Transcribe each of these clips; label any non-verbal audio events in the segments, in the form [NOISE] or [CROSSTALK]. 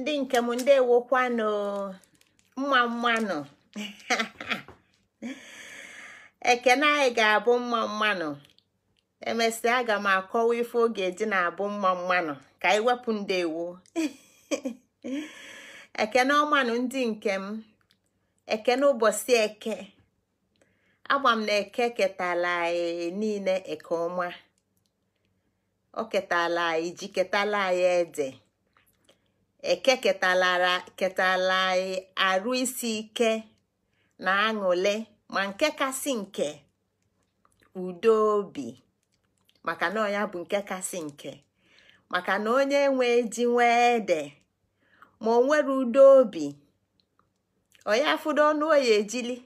ndị nke m ndị ndewokwanụ mma mmanụ [LAUGHS] ekene anyị ga-abụ mma mmanụ emesịa aga m akọwa ife oge dị na-abụ mma mmanụ ka anyị wepụ ewo [LAUGHS] ekene ọmanụ ndị nke m ekene ụbọchị eke agba m na eke ketala anyị niile eke ọma o ketala anyị ji ketala anyị ede ekeketalara ketalaị arụ isi ike na aṅụle ma nke kasị nke udo obi maka na ọya bụ nke kasị nke maka na onye nwe ji nwee de, ma o nwere udo obi onye afụdo ọnụ oyi ejili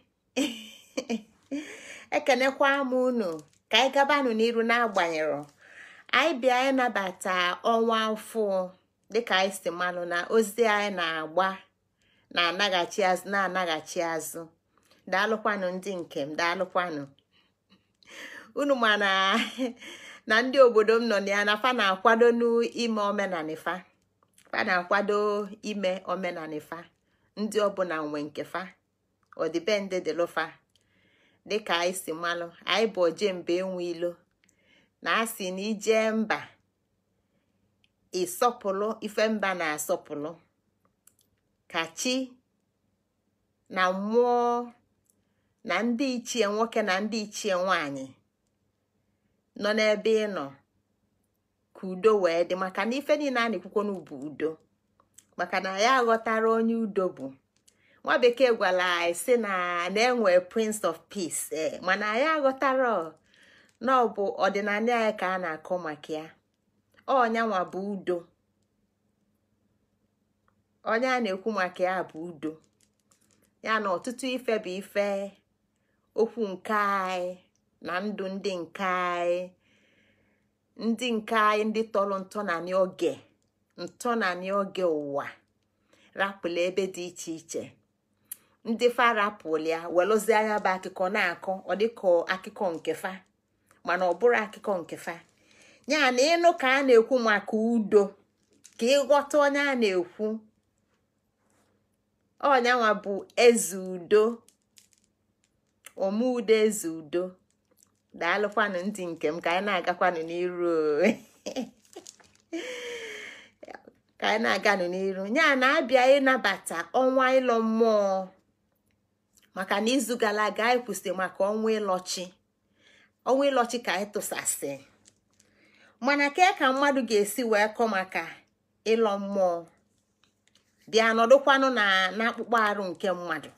[LAUGHS] ekenekwa m unu ka anyị gabanụ n'iru n'agbanyeghị anyị bịa ịnabata ọnwa afọ. dịka anyị si malụ na ozi anyị na-agba na-anaghachi azụ na-anaghachi azụ daalụkwanụ ndị m daalụkwanụ [LAUGHS] unu ma [LAUGHS] na ndị obodo m nọ na ya na fa na-akwado n'ime omenanifa fa na-akwado ime omenanifa ndị ọbụla nwe nke fa ọdịbendị dịlụfa dịka anyị si malụ anyị bụ ojembe enwe ilo na asị na ijee mba ịsọpụrụ mba na-asọpụrụ ka chi na mmụọ na ndị ichie nwoke na ndị ichie nwanyị nọ n'ebe ị nọ ka udo wee dị maka na ife niile a na-ekwukwo n'ubu udo maka na ya aghọtara onye udo bụ nwa bekee gwara anyị na na-enwe prince of peace eh, mana ya aghọtara na ọ bụ ọdịnala ka a na-akọ maka ya ọnyanwa bụ udo onye a na-ekwu maka ya bụ udo ya na ọtụtụ ife bụ ife okwu nke anyị na ndụ ndị nke anyị ndị nke anyị ndị tọrọ ntọnanị oge ntọnanị oge ụwa rapụla ebe dị iche iche ndị fa rapụlụ ya welụzie anya bụ akụkọ na-akọ ọ dịka akụkọ nke fa mana ọ bụrụ akụkọ nke fa ya na ịnụ ka a na-ekwu maka udo ka ịghọta onye a na-ekwu ọnyanwa bụ eze udo omeudo eze udo daalụkwanụ ndị nke m ka anyị na-agakwanụ n'iru [LAUGHS] ka anyị na-aganụ n'iru ya na-abịa ịnabata ọnwa ịlọ mmụọ maka na izu gara aga anyị kwụsị maka ọnwa ịlọchi ọnwa ịlọchi ka anyị tụsasị mana kee ka mmadụ ga-esi wee kọ maka ịlọ mmụọ dị anọdụkwanụ na n'akpụkpọ arụ nke mmadụ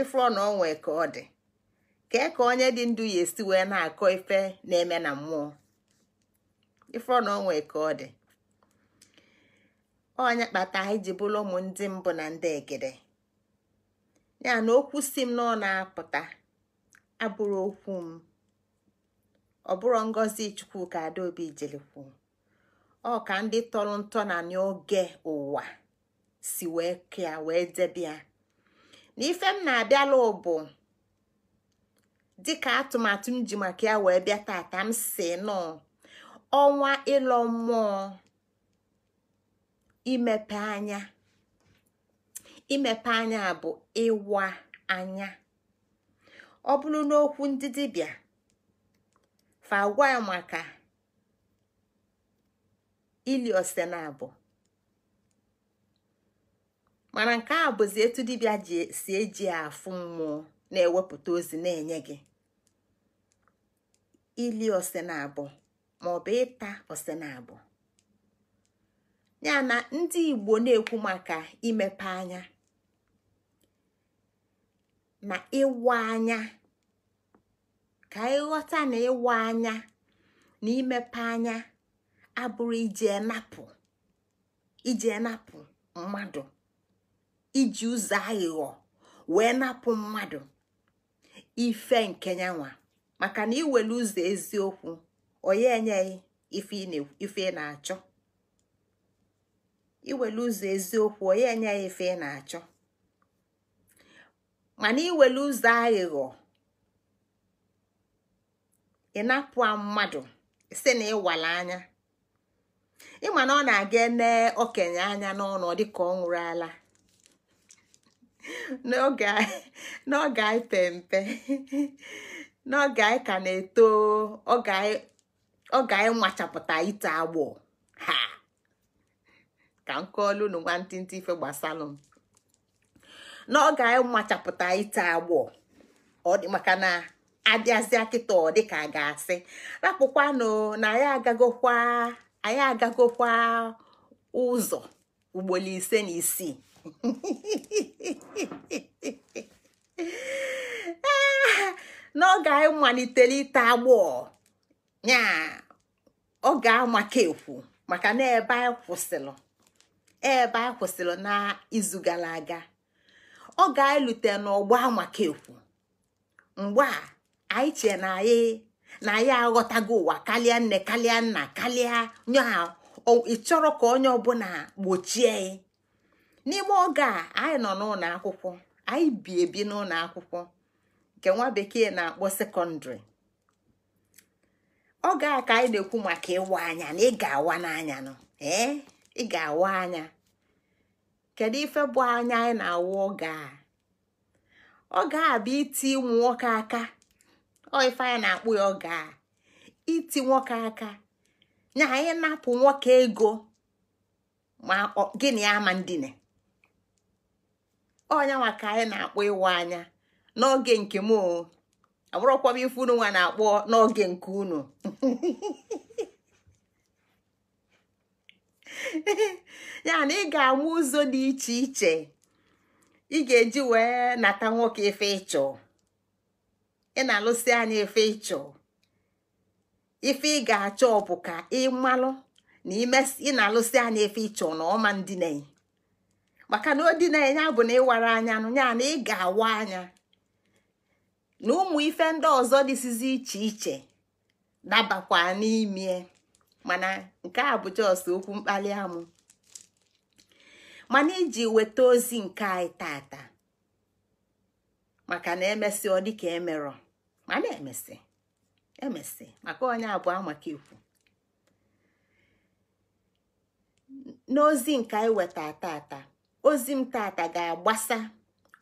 ịfụrọ na onwe ka ọ dị kee ka onye dị ndụ ya esi wee na-akọ ife na-eme na mmụọ ịfụrọ na onwe ka ọ dị onye kpata iji ji bụrụ ụmụ ndị mbụ na ndị egede ya na okwu si m na ọ na-apụta abụrụ okwu m ọ bụrụ ngozi chukwuka adaobi jilikwu ọ ka ndị tọrọ ntọ na n'oge ụwa si wee kea wee debia na m na-abịala ụbụ dịka atụmatụ m ji maka ya wee bịa tata m si nọ ọnwa ịlọ mmụọ imepe anya imepe bụ ịwa anya ọ bụrụ n'okwu ndị dibịa fa maka ili ose mana nke a bụzi etu dibia si eji afụ mmụọ na-ewepụta ozi na-enye gị ili ose na abụ maọbụ ịta ose na abụ ya na ndị Igbo na-ekwu maka imepe anya na ịwa anya ka ịghọta na ịwa anya na imepe anya abụrụ iji napụ iji enapụ mmadụ iji ụzọ aghụghọ wee napụ mmadụ ife nke nyanwa maka na iwere ụzọ eziokwu onye enyeghị ife ị na-achọ iwere ụzọ eziokwu onye enyeghị ife ị na-achọ mana iwere ụzọ aghụghọ ị mmadụ si na ịwala anya ịma na ọ na-aga ene okenye anya n'ọnụ dịka ọ nwụrụ ala [LAUGHS] n'oge anyị pe mpe [LAUGHS] n'oge anyị ka na-eto oge anyị nwachapụta ite agbụ ha ka nke kọọlụ unu nwantịntị ife gbasalụ m n'oge anyị nwachapụta ite agbụ ọ dị maka na. abịazịa kịta ọ dịka a ga-asị rapụkwanụ na anyị agagokwa anyị agagokwa ụzọ ugboro ise na isii [LAUGHS] n'oge anyị malitere ite agbọ ya ọ ga-amaka ekwu maka na ebe anyị kwụsịrị ebe anyị kwụsịrị n'izu gara aga ọ ga-elute n'ọgbọ amaka ekwu mgbe a anyị chee na anyị na anyị aghọtago ụwa karịa nne karịa nna karịa ị chọrọ ka onye ọbụla gbochie n'ime oge a anyị nọ n'ụlọ akwụkwọ anyị bi ebi n'ụlọ akwụkwọ nke nwa bekee na-akpọ sekọndịrị oge a ka anyị na-ekwu maka ịwa anya na ị ga-awa n'anya nọ ee ị ga-awa anya kedu ife bụ anya anyị na-awa oge a oge a bụ iti ụmụ nwoke aka ọ ife anya na-akpụ ya ọ gaa iti nwoke aka na anyị na-apụ nwoke ego ma gịnị ama ndine ọnyanwa ka anyị na akpụ ịwa anya n'oge nke m abụrụkwa m ife unu na akpụ n'oge nke unu [LAUGHS] ya na ị ga amụ ụzọ dị iche iche ị ga-eji wee nata nwoke ife ịchọọ ị na-alụsi anya ife ịchọ ife ị ga-achọ bụ ka malụ na ị na-alụsi anya ife ịchọ na ọma ndị na-enye maka na odinanya bụ na ịwara anya nụ ya na ị ga-awa anya na ụmụ ife ndị ọzọ dịsizi iche iche dabakwa n'ime mana nke a bụ jọs okwu mkpali amụ mana iji weta ozi nke anyị tata maka na emesịa ọ dịka emerọ mana emesi emesi maka onye abụọ maka ikwu n'ozi nke anyị weta tata ozi m tata ga-agbasa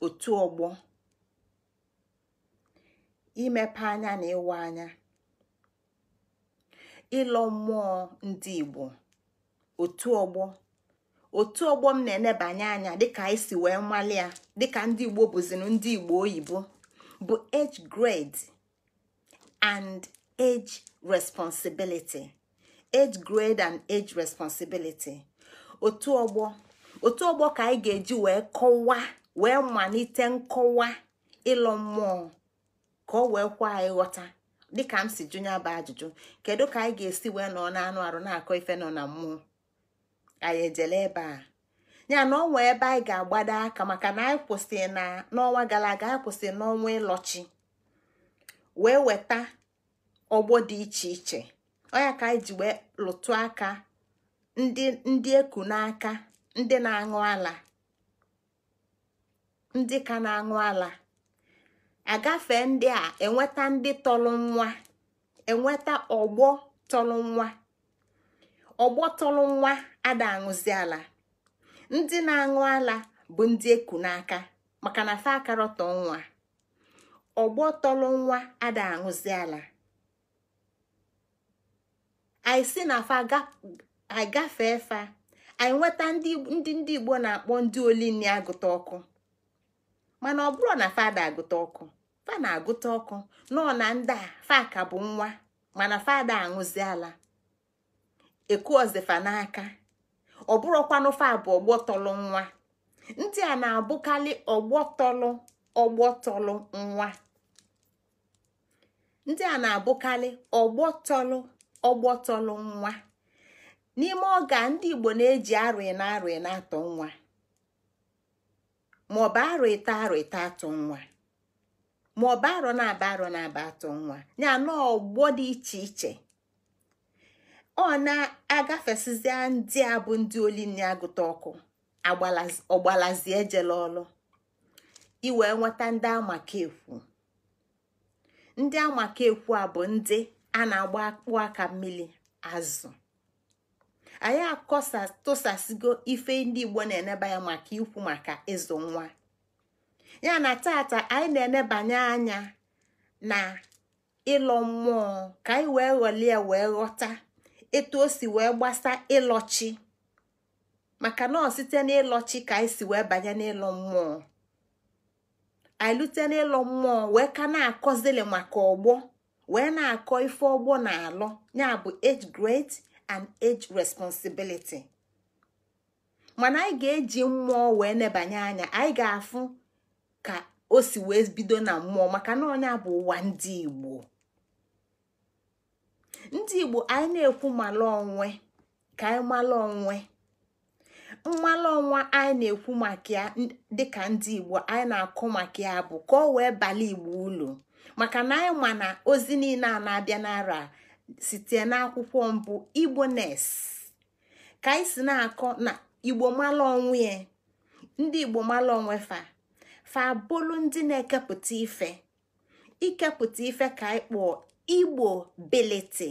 otu ọgbọ imepe anya na ịwa anya ịlọ mmụọ ndị Igbo otu ọgbọ otu ọgbọ m na-enebanye anya dịka anyị si wee nwale ya dịka ndị Igbo bụzinu ndị Igbo oyibo bụ age grade and age responsibility age grade and age responsibility otu ọgbọ otu ọgbọ ka anyị ga-eji wee kọwa wee malite nkọwa ịlọ mmụọ ka ọ wee kwa anyị ghọta dịka m si jụnya bụ ajụjụ kedu ka anyị ga-esi wee nọ na-anụ arụ na-akọ ife nọ na mmụọ anyị ejele ebe a ya na ọnwa ebe anyị ga-agbado aka maka na anyị kwụsị na n'ọnwa gara aga anyị kwụsị n'ọnwa ịlọchi wee weta ọgbọ dị iche iche ya ka anyị ji wee lụtụ aka ndị eku n'aka ndị na-aṅụ ala ndị ka na-aṅụ ala agafe ndị a enweta ndị tọrọ nwa enweta ọgbọ tọrọ nwa ọgbọ tọrọ nwa ada aṅụzi ala ndị na-aṅụ ala bụ ndị eku n'aka maka na fa akarọtọ nwa ọgbọ tọrọ nwa ada aṅụzi ala anyị si na fa agafe fa anyị nweta ndị ndị igbo na-akpọ ndị olinni agụta ọkụ mana ọ bụrụ na fada agụta ọkụ fa na-agụta ọkụ nọ na ndị a fa ka bụ nwa mana fada aṅụzi ala ekuozifa n'aka ọ bụrụkwanụ fa bụ ọgbọ tọrọ nwa ndị a na-abụkarị ọgbọ tọrọ ọgbọ tọlụ nwa ndị a na-abụkarị ọgbọ tọlụ ọgbọ tọlụ nwa n'ime ọga ndị Igbo na-eji arụ na atọ nwa maọbụ arụ ịta arụ ịta atọ nwa maọbụ arọ na-aba arọ na-aba atọ nwa ya na ọgbọ dị iche iche ọ na-agafesizi ndị a bụ ndị oli na-agụta ọkụ ọgbalazi ejela ọlụ iwee nweta ndị amakekwu ndị amakekwu a bụ ndị a na-agba akpụ aka mmiri azụ anyị akọsa ife ndị igbo na-eneba ya maka ikwu maka ịzụ nwa ya na tata anyị na-enebanye anya na ịlọ mmụọ ka anyị wee ghọlie wee ghọta etu o si wee gbasa ịlọchi maka na ọ site n'ịlọchi ka anyị si wee banye n'ịlọ mmụọ anyị lute mmụọ wee ka na-akọzili maka ọgbọ wee na-akọ ife ọgbọ na-alọ ya bụ age grade and age responsibility mana anyị ga-eji mmụọ wee nebanye anya anyị ga-afụ ka o si wee bido na mmụọ maka na onye bụ ụwa ndị Igbo ndị Igbo anyị na-ekwu mala onwe ka anyị mala onwe mmalụ ọnwa anyị na-ekwu maka ya dịka ndị igbo anyị na-akụ maka ya bụ ka ọ wee bala igbo ulu maka na anyị ma na ozi niile a na-abịa n'ara site n'akwụkwọ mbụ igbo nes ka anyị si na-akọ na igbo malụ onwe ya ndị igbo malụ onwe fa fa bụlụ ndị na-ekepụta ife ikepụta ife ka anyị kpọọ igbo biliti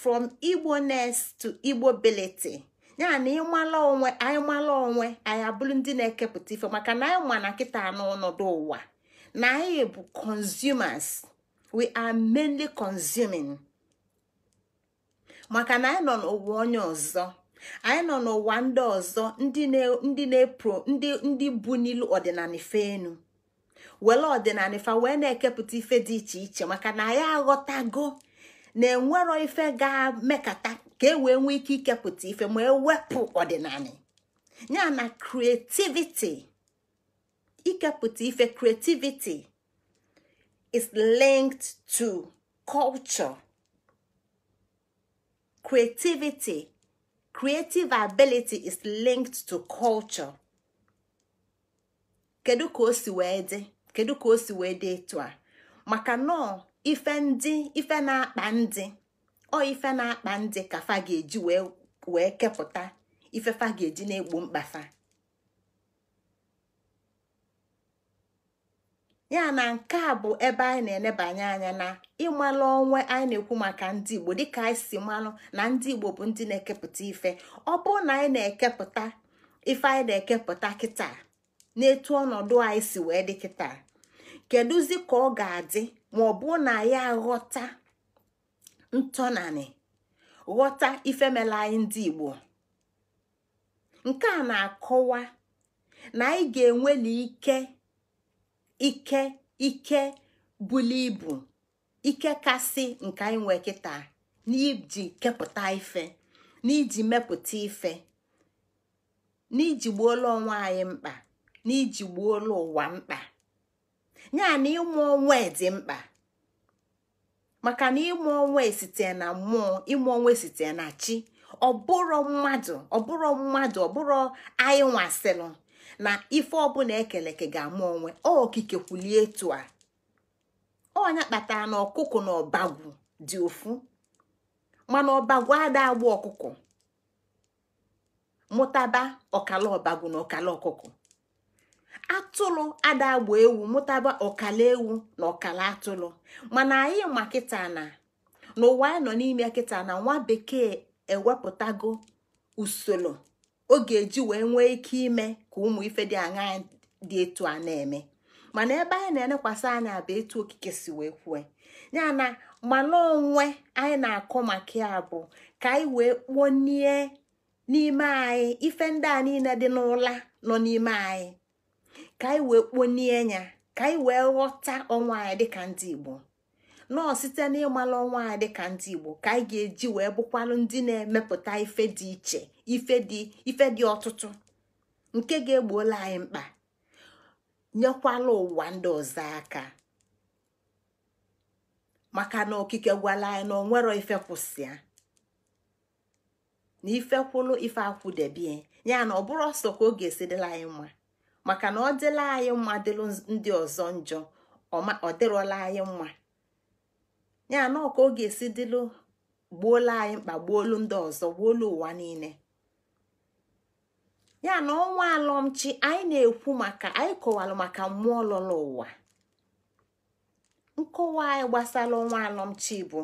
from igbo nes to igbo biliti ya na ịmala onwe anyị mala onwe anyị abụrụ ndị na-ekepụta ife maka na anyị ma na kịta n'ọnọdụ ụwa na anyị bụ consumers we are mainly consuming maka na anyị nọ n'ụwa onye ọzọ anyị nọ n'ụwa ndị ọzọ ndị na-epro ndị bụ n'ilu ọdịnala ife enu were ọdịnala ife wee na-ekepụta ife dị iche iche maka na anyị aghọtago na-enwero ife ga mekata ka e wee nwee ike ikepụta ife ma ewepụ ọdịnala ya na creativity ikepụta ife creativity is linked to culture creativity creative ability is linked to culture kedu ka o si wee dị kedu ka o si wee dị etu a maka nọọ ife ndị ife na-akpa ndị ọ ife na-akpa ndị ka fa ga-eji wee kepụta ife fa ga-eji na-egbo mkpafa ya na nke a bụ ebe anyị na-enebanye anya na ịmalụ onwe anyị na-ekwu maka ndị Igbo dịka anyị si malụ na ndị Igbo bụ ndị na-ekepụta ife ọ bụrụ na anyị na-ekepụta ife anyị na-ekepụta kịta etu ọnọdụ anyị si wee dị kịta kedụzi ka ọ ga-adị ma ọ bụ na ya ghọta ntọnanị ghọta ifemela anyị ndị Igbo nke a na-akọwa na anyị ga-enweli ike ike ike buli ibu ike kasị nke anyị nwee kịta n'iji kepụta ife n'iji mepụta ife n'iji gbuola onwe anyị mkpa n'iji gbuola ụwa mkpa ya na ịmụ onwe dị mkpa maka na ịmụ onwe site na mmụọ ịmụ onwe site na chi ọbụrụ mmadụ ọbụrụ mmadụ ọbụrụ anyị nwasịrụ na ife ọbụla ekeleke ga-amụ onwe okike kwulie etu a ọnya kpatara na ọkụkụ na ọbagwu dị ofu mana ọbagwu ada agba ọkụkụ mụtaba ọkala ọbagwu na ọkala ọkụkụ atụrụ agba ewu mụtaba ọkala ewu na ọkala atụrụ mana anyị ma kịta na n'ụwa anyị nọ n'ime kịta na nwa bekee ewepụtago usoro ọ ga-eji wee nwee ike ime ka ụmụ ife dị aṅa dị etu a na-eme mana ebe anyị na-elekwasị anya bụ etu okike si wee kwue ya na mana onwe anyị na-akọ maka ya bụ ka anyị wee kponie n'ime anyị ife ndị a niile dị n'ụla nọ n'ime anyị ka anyị wee kponie ya ka anyị wee ghọta ọnwa anyị dịka ndị igbo nọọ site n'ịmalụ ọnwa anyị dịka ndị igbo ka anyị ga-eji wee bụkwalụ ndị na-emepụta ife dị iche ife dị ife dị ọtụtụ nke ga-egbuola anyị mkpa nyekwala ụwa ndị ọzọ aka maka na okike gwala anyị na onwero ife kwụsịa na ife kwụlụ ife akwụdebie ya na ọ bụrụ ọsọ ka ọ ga dịla anyị mma maka na ọ dịla anyị mma dịlụ ndị ọzọ njọ ọ dịrọla anyị mma ya na ọka ọ ga-esi dịlụ gbuola anyị mkpa gbuolu ndị ọzọ gbuolu ụwa niile ya na ọnwa alọmchi anyị na-ekwu maka anyị kọwalụ maka mmụọ lọrọ ụwa nkọwa anyị gbasara ọnwa alọmchi bụ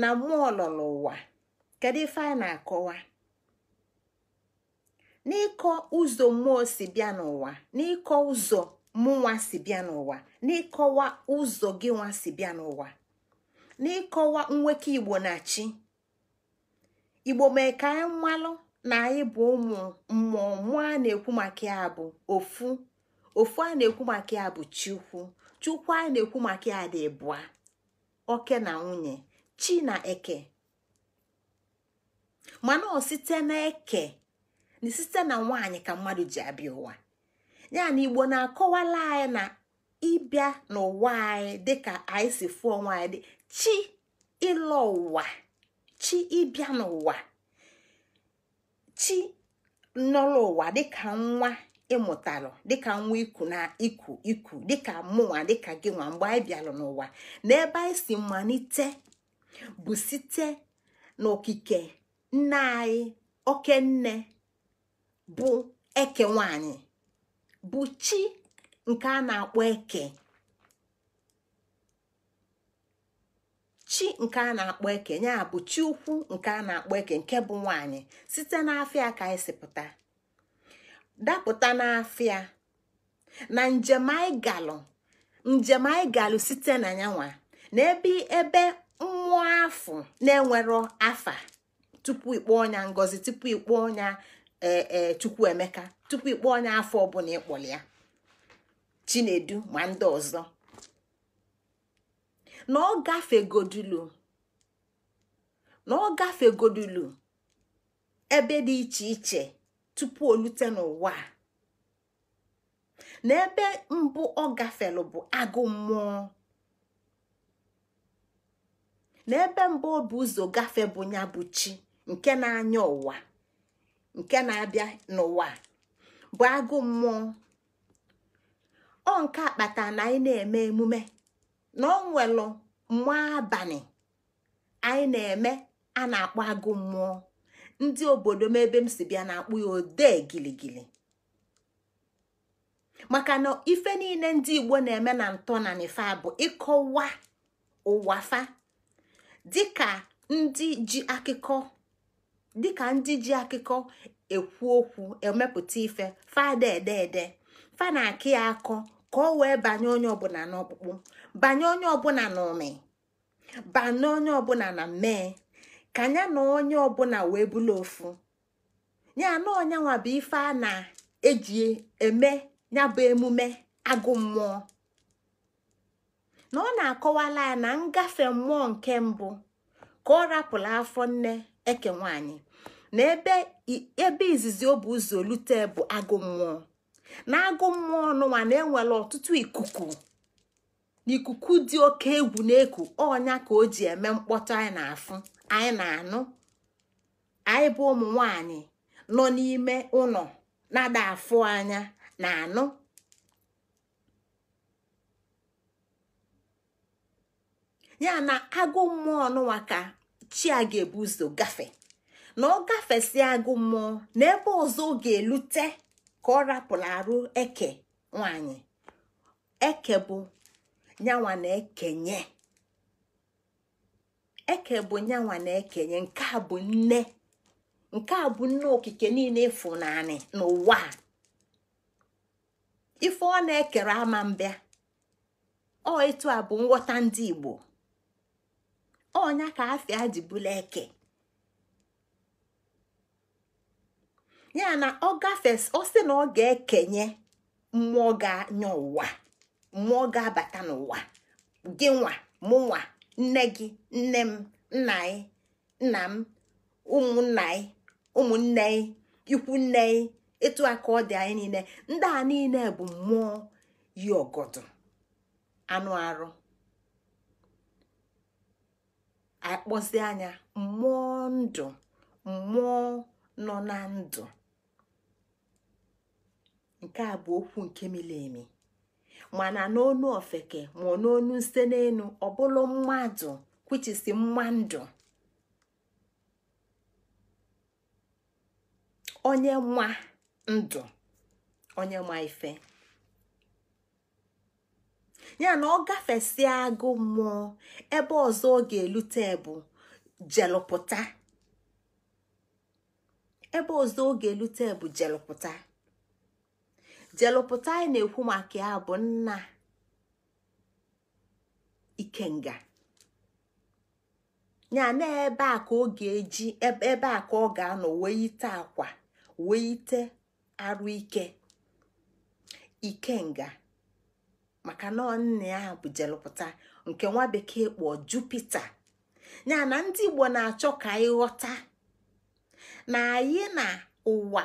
na mmụọ lọrọ ụwa kedu ife anyị na-akọwa n'ịkọ ụzọ mmụọ si bịa n'ụwa n'ịkọ ụzọ mụnwa si bịa n'ụwa n'ịkọwa ụzọ gị nwa si bịa n'ụwa n'ịkọwa nwoke igbo na chi igbo mee ka anyị mmalụ na anyị bụ ụmụ mmụọ mmụọ a na-ekwu maka ya bụ ofu ofu a na-ekwu maka ya bụ chukwu chukwu a na-ekwu maka ya dị bụa oke na nwunye chi na eke mana ọ site na eke na site na nwaanyị ka mmadụ ji abịa ụwa ya na igbo na-akọwala anyị na ịbịa n'ụwa anyị dịka anyị si fụọ nwaanyị dị chi ịlọ ụwa chi ịbịa n'ụwa chi nọrọ ụwa dịka nwa ịmụtalụ dịka nwa iku na iku iku dịka mụnwa dịka gị nwa mgbe anyị bịalụ n'ụwa na ebe anyị si malite bụ site n'okike nne anyị oke nne bụ eke nwanyị bụ chi nke a na-akpọ eke chi nke a na-akpọ eke bụ chi ukwu nke a na-akpọ eke nke bụ nwanyị site n'afịa ka anyị e sipụta dapụta n'afịa na njem anyị njem anyị site na yanwa na ebe ebe mmụọ afọ na-enwero afa tupu ikpọ ọnya ngozi tupu ikpọ ọnya ee e, emeka tupu ịkpọ onye afọ ọbụla ịkpọrọ ya chinedu ma ndị ọzọ na ọ gafegodulu ebe dị iche iche tupu o lute n'ụwa na ebe mbụ ọ gafelu bụ agụ mmụọ na ebe mbụ ọ bụ ụzọ gafe bụ ya bụ chi nke na-anya ụwa nke na-abịa n'ụwa bụ agụ mmụọ ọ nke akpata na anyị na-eme emume na ọ nwelụ mmụọ abalị anyị na-eme a na-akpọ agụ mmụọ ndị obodo m ebe m si bịa na-akpụ ya odee giligili maka na ife niile ndị Igbo na-eme na ntọ na nifa bụ ịkọwa ụwafa dịka ndị ji akụkọ dịka ndị ji akụkọ ekwu okwu emepụta ife fada ede fa na akụ ya akọ ka ọ wee banye onye ọbụla n'ọkpụkpụ banye onye ọbụla n'ụmị banye onye ọbụla na mmee ka ya na onye ọbụla wee bụla ofu ya na onye bụ ife a na-eji eme ya bụ emume agụ mmụọ na ọ na-akọwala ya na ngafe mmụọ nke mbụ ka ọ rapụrụ afọ nne eke nwanyị na ebe izizi obu bụ ụzọ olute bụ agụ mmụọ na agụ mmụọ n'ụwa na-enwere ọtụtụ ikuku ikuku dị oke egwu na-eku ọnya ka o ji eme mkpọtụ anyị na-afụ anyị na-anụ anyị bụ ụmụ nwanyị nọ n'ime ụlọ na-ada afụ anya na-anụ ya na agụ mmụọ n'ụwa ka chi a ga-ebu ụzọ gafe na ọ gafesi agụ mmụọ na ebe ọzọ ọ ga-elute ka ọ rapụrụ arụ eke nwanyị eke bụ nyanwa na ekenye eke bụ nyanwa na ekenye nke a bụ nne nke a bụ nne okike niile ịfụnanị n'ụwa ife ọ na-ekere ama mbịa ọ etu a bụ nghọta ndị Igbo ọnya ka afia ji bụla eke ya na ọ gafes ọ sị na ọ ga-ekenye mmụọ ga-anya ụwa mmụọ ga-abata n'ụwa gị nwa mụ nwa nne gị nne m nna anyị nna m ụmụnna anyị ụmụnne anyị ikwu nne anyị etu a ọ dị anyị niile ndị a niile bụ mmụọ yi ọgọdọ anụ arụ akpọzi anya mmụọ ndụ mmụọ nọ na ndụ nke a bụ okwu nke miri emi mana n'onu ofeke ma n'onu nse n'elu ọbụlụ mmadụ kwuchisi mmadụ onye nwa ndụ onye nwa ife ya na ọ gafesịa agụ mmụọ ebe ọzọ ọ ga-elute bụ jelụpụta ebe ọzọ ọ ga-elute bụ jelụpụta jelụpụta anyị na-ekwu maka ya bụ nna ikenga ya na ebe a ka ọ ga-eji ebe a ka ọ ga-anọ wee ite akwa wee ite arụ ike ikenga maka na nne a bụ jelụpụta nke nwa bekee kpọọ jupita ya na ndị igbo na-achọ ka anyị ghọta na anyị na ụwa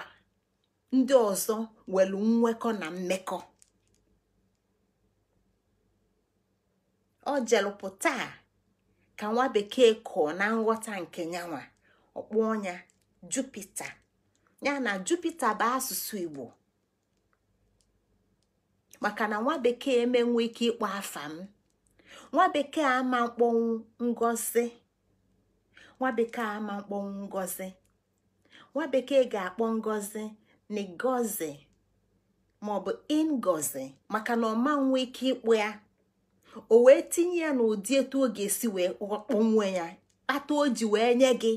ndị ọzọ nwere nwekọ na mmekọ ọ jelụpụta ka nwa bekee kọọ na nghọta nke nyanwa ọkpụ ya jupita ya na jupita bụ asụsụ igbo maka na nwa bekee emenwe ike ịkpọ afa m nwa bekee ama mkpọnwụ ngozi nwa bekee ama mkpọnwụ ngozi nwa bekee ga-akpọ ngozi ngozi maọbụ ingozi maka na ọma nwe ike ịkpọ ya o wee tinye ya n'ụdị etu ọ ga-esi wee ya kpata o ji wee nye gị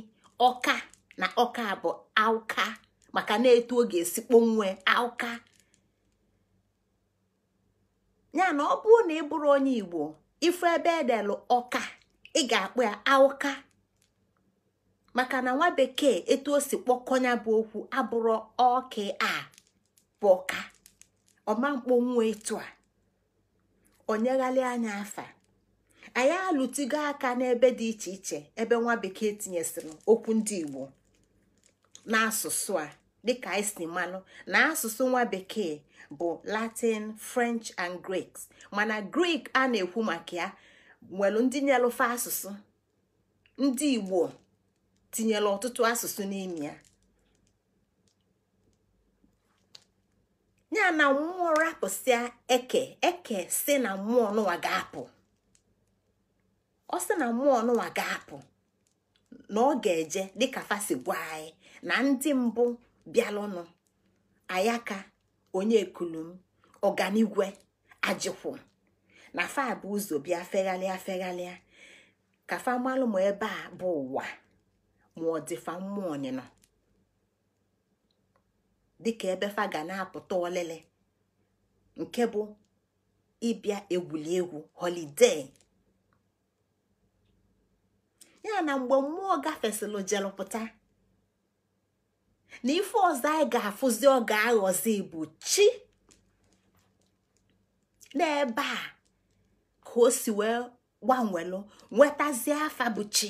ọka na ọka bụ auka maka na etu ọ ga-esi kpọnwụọ auka ya na ọ bụrụ na ị bụrụ onye igbo ife ebe edelụ ọka ị ga-akpụ ya aụka maka na nwa bekee etu o si kpọkọnya bụ okwu abụrụ ọka a bụ ọka ọma mkpọnwụ etu a onyeghalị anya afa anyị alụtigo aka n'ebe dị iche iche ebe nwa bekee tinyesịrị okwu ndị igbo n'asụsụ a dịka anyị e si na asụsụ nwa bekee bụ latin french and griik mana grik a na-ekwu maka ya nwere ndị nyelụfe asụsụ ndị igbo tinyere ọtụtụ asụsụ n'ime ya ya na mmụọ rapụsịa eke eke si na mmụọ n'ụwa ga-apụ ọ si na mmụọ n'ụwa ga-apụ na ọ ga-eje dịka fasi gwa anyị na ndị mbụ bịalụnụ ayaka onye kulum ọganigwe ajikwu na fa bụ ụzọ bịa fegharịa fegharịa ka fa malụ ma ebe a bụ ụwa ma ọ dịfa mmụọ ọnịnọ dịka ebe fa ga na-apụta ọlịlị nke bụ ịbịa egwuregwu egwu ya na mgbe mmụọ gafesịlụ jelụpụta na ife ọzọ anyị ga-afụzi ọ ga-aghọzi bụ chi n'ebe a ka o si wee gbanwelụ nwetazie afa bụ chi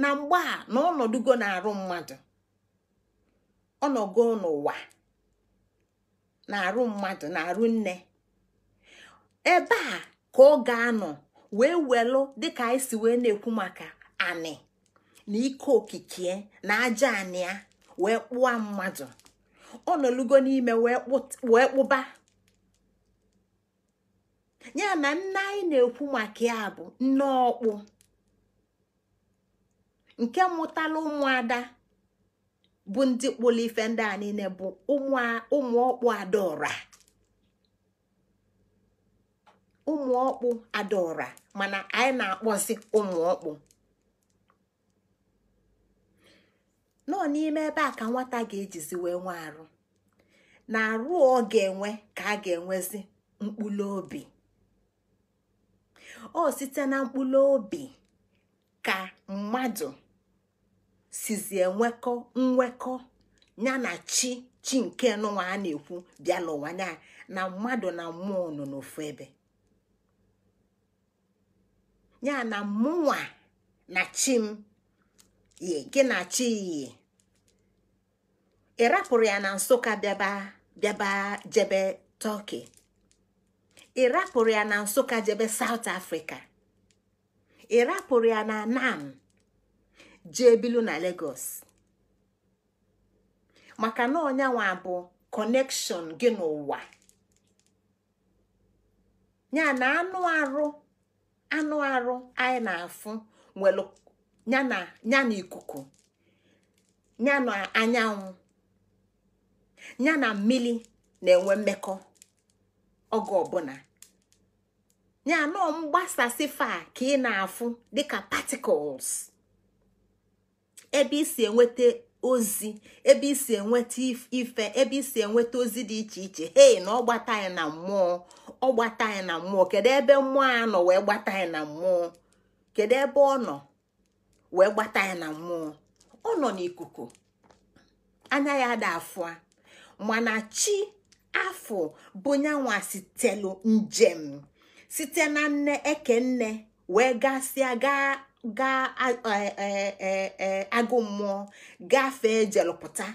na mgbe a na na-arụ mmadụ ọnọgo n'ụwa na-arụ mmadụ na-arụ nne ebe a ka ọ ga-anọ wee welụ dịka anyị si wee na-ekwu maka anị na ike okike na aja anịa wee kpụa mmadụ ọ nọlugo n'ime wee kpụba ya na nne anyị na-ekwu maka ya bụ nne ọkpụ nke mụtala ụmụada bụ ndị kpụrụ ife ndị a niile bụ ụmụ ọkpụ adaora ụmụ ọkpụ adaora mana anyị na-akpọzi ụmụ ọkpụ nọ n'ime ebe a ka nwata ga-ejizi wee nwe arụ na arụ ọ ga-enwe ka a ga-enwezi mkpụrụ obi ọ site na mkpụrụ obi ka mmadụ sizi enwekọ nwekọ ya na chi chi nke nụnwa a na-ekwu bịa n'ụwa ya na mmadụ na mmụọ nọ n'ofu ebe ya na mụnwa na chi m ye gị na ị ya na nsụka bịaba bịaba jebe tọki ị ya na nsụka jebe saut afrịka ị ya na nam jee bilu na legos maka na ọnyanwa bụ kọnekshọn gị n'ụwa ya na anụ arụ anụ arụ anyị na-afụ nwere ya na ikuku ya na anyanwụ ya na mmiri na-enwe mmekọ oge ọbụla ya nọ mgbasasị fa ka ị na-afụ dịka particles ebe isi enweta ozi ebe isi enweta ife ebe isi enweta ozi dị iche iche hei na ọ gbata anyị na mmụọ ọ gbata anyị na mmụọ kedu ebe mmụọ a nọ wee gbata anyị na mmụọ kedu ebe ọ nọ wee gbata ya na mmụọ ọ nọ n'ikuku anya ya ada a mana chi afọ bụ nyanwa sitelu njem site na nne eke nne wee gasịa gaa gaa e, e, e, agụ mmụọ gafee jelụpụta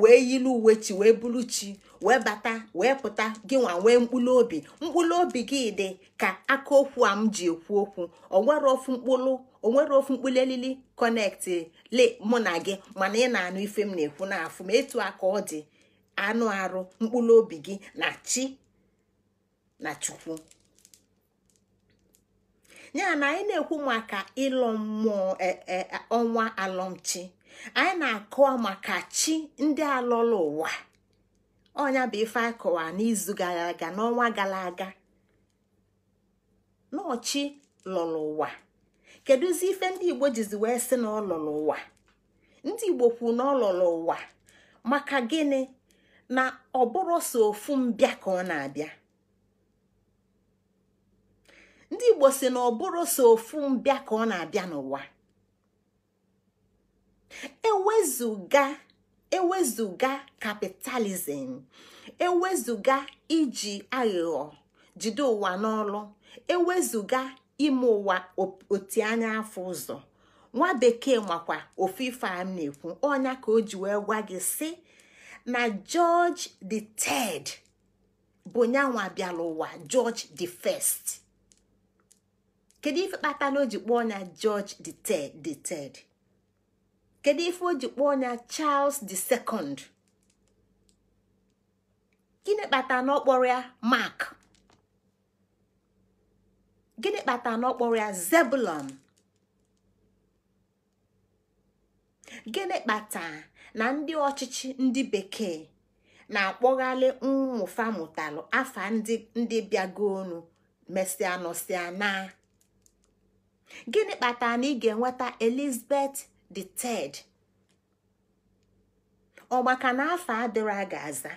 wee yili uwe chi wee bulu chi wee bata wee pụta gị nwa nwee mkpụrụ obi mkpụrụ obi gị dị ka aka okwu a m ji ekwu okwu ọ nwere ofu mkpụrụ o ofu mkpụrụ elili kọnekti le mụ na gị mana ị na-anụ ife m na-ekwu n'afụ ma etu aka ọ dị anụ arụ mkpụrụ obi gị na chi na chukwu ya na anyị na-ekwu maka ịlọ mmụọ e, e, e, ọnwa alọmchi anyị na-akọwa maka chi ndị alọla ụwa ọnya bụ ife akọwa n'izu gara aga n'ọnwa gara aga n'ọchị lụrụ ụwa kedụzi ife ndị igbo jizi wee sị na ọ ụwa ndị igbo kwuru na ọ ụwa maka gịnị na ọ bụrụ so ofu mbịa ka ọ na-abịa ndị igbo si na ọ bụrụ so ofu mbịa ka ọ na-abịa n'ụwa ewezuga ewezuga kapitalizim ewezuga iji aghụghọ jide ụwa n'ọlụ ewezuga ime ụwa anya afọ ụzọ nwa bekee makwa ife a na-ekwu ọnya ka o ji wee gwa gị sị na George the Third bụ nyanwa bịara ụwa George the First kedu ife kpata na o ji kpọọ na George the Third the Third kedu ife o ji kpọọ na Charles the Second gịnị kpata na ọ kpọrọ ya Mark gịnị kpata na ọ kpọrọ ya zebulon gịnị kpata na ndị ọchịchị ndị bekee na-akpọghalị mmụfa mụtalụ afa ndị bịagonu mesịa nọsịa na gịnị kpata na ị ga-enweta elizabeth the third ọgbaka na afa adịrọ a ga-aza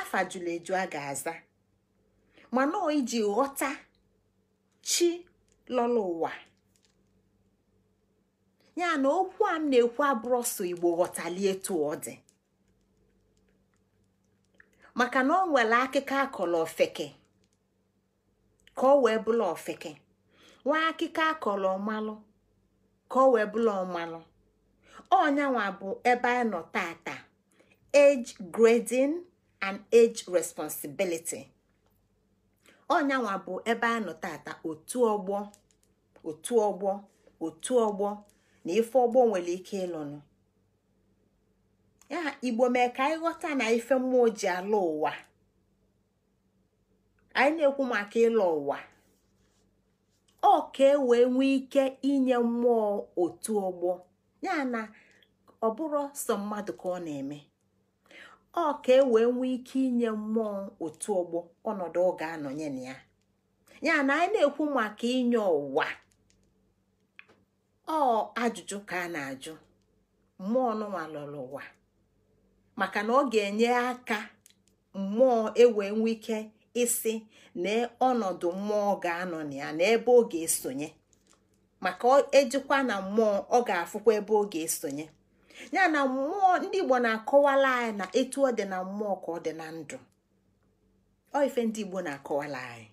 afa jụrụ eju a ga-aza mana iji ghọta chi lọla ụwa ya na okwu a m na-ekwu abụrụ ọsọ igbo ghọtalie etu ọ dị maka na ọ nwere akịka akọrọ ofeke ka ọ wee bụla ofeke nwa akịka akọrọ ọmalụ ka ọ wee bụla ọmalụ ọnyanwa bụ ebe anyị nọ tata age grading and age responsibility ọnyanwa bụ ebe a nọ tata otu ọgbọ otu ọgbọ otu ọgbọ na ife ọgbọ nwere ike ịlụnụ ya igbo mee ka anyị ghọta na ife mmụọ ji ala ụwa anyị na-ekwu maka ịlọ ụwa ọ ka e wee nwee ike inye mmụọ otu ọgbọ ya na ọ bụrụ sọ mmadụ ka ọ na-eme ọ ka e wee nwee ike inye mmụọ otu ọgbọ ọnọdụ ọ ga-anọnye na ya ya na anyị na-ekwu maka inye ụwa ọ ajụjụ ka a na-ajụ mmụọ nụnwa lọrọ ụwa maka na ọ ga-enye aka mmụọ ewee nwee ike isi na ọnọdụ mmụọ ga-anọ na ya na ebe ọ ga-esonye maka ejikwa na mmụọ ọ ga-afụkwa ebe ọ ga-esonye ya na mmụọ ndị igbo na-akọwala anyị na etu ọ dị na mmụọ ka ọ dị na ndụ Ya ife ndị igbo na-akọwala anyị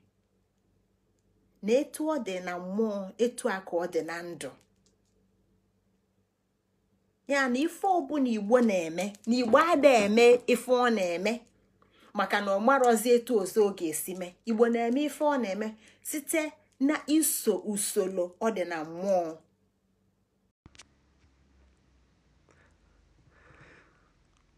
na etu ọ dị na mmụọ etu a ka ọ ife ọbụla igbo na-eme na igbo ada eme ife ọ na-eme maka na ọ marọzi etu ọzọ ọ ga-esi mee igbo na-eme ife ọ na-eme site na iso usoro ọ dị na mmụọ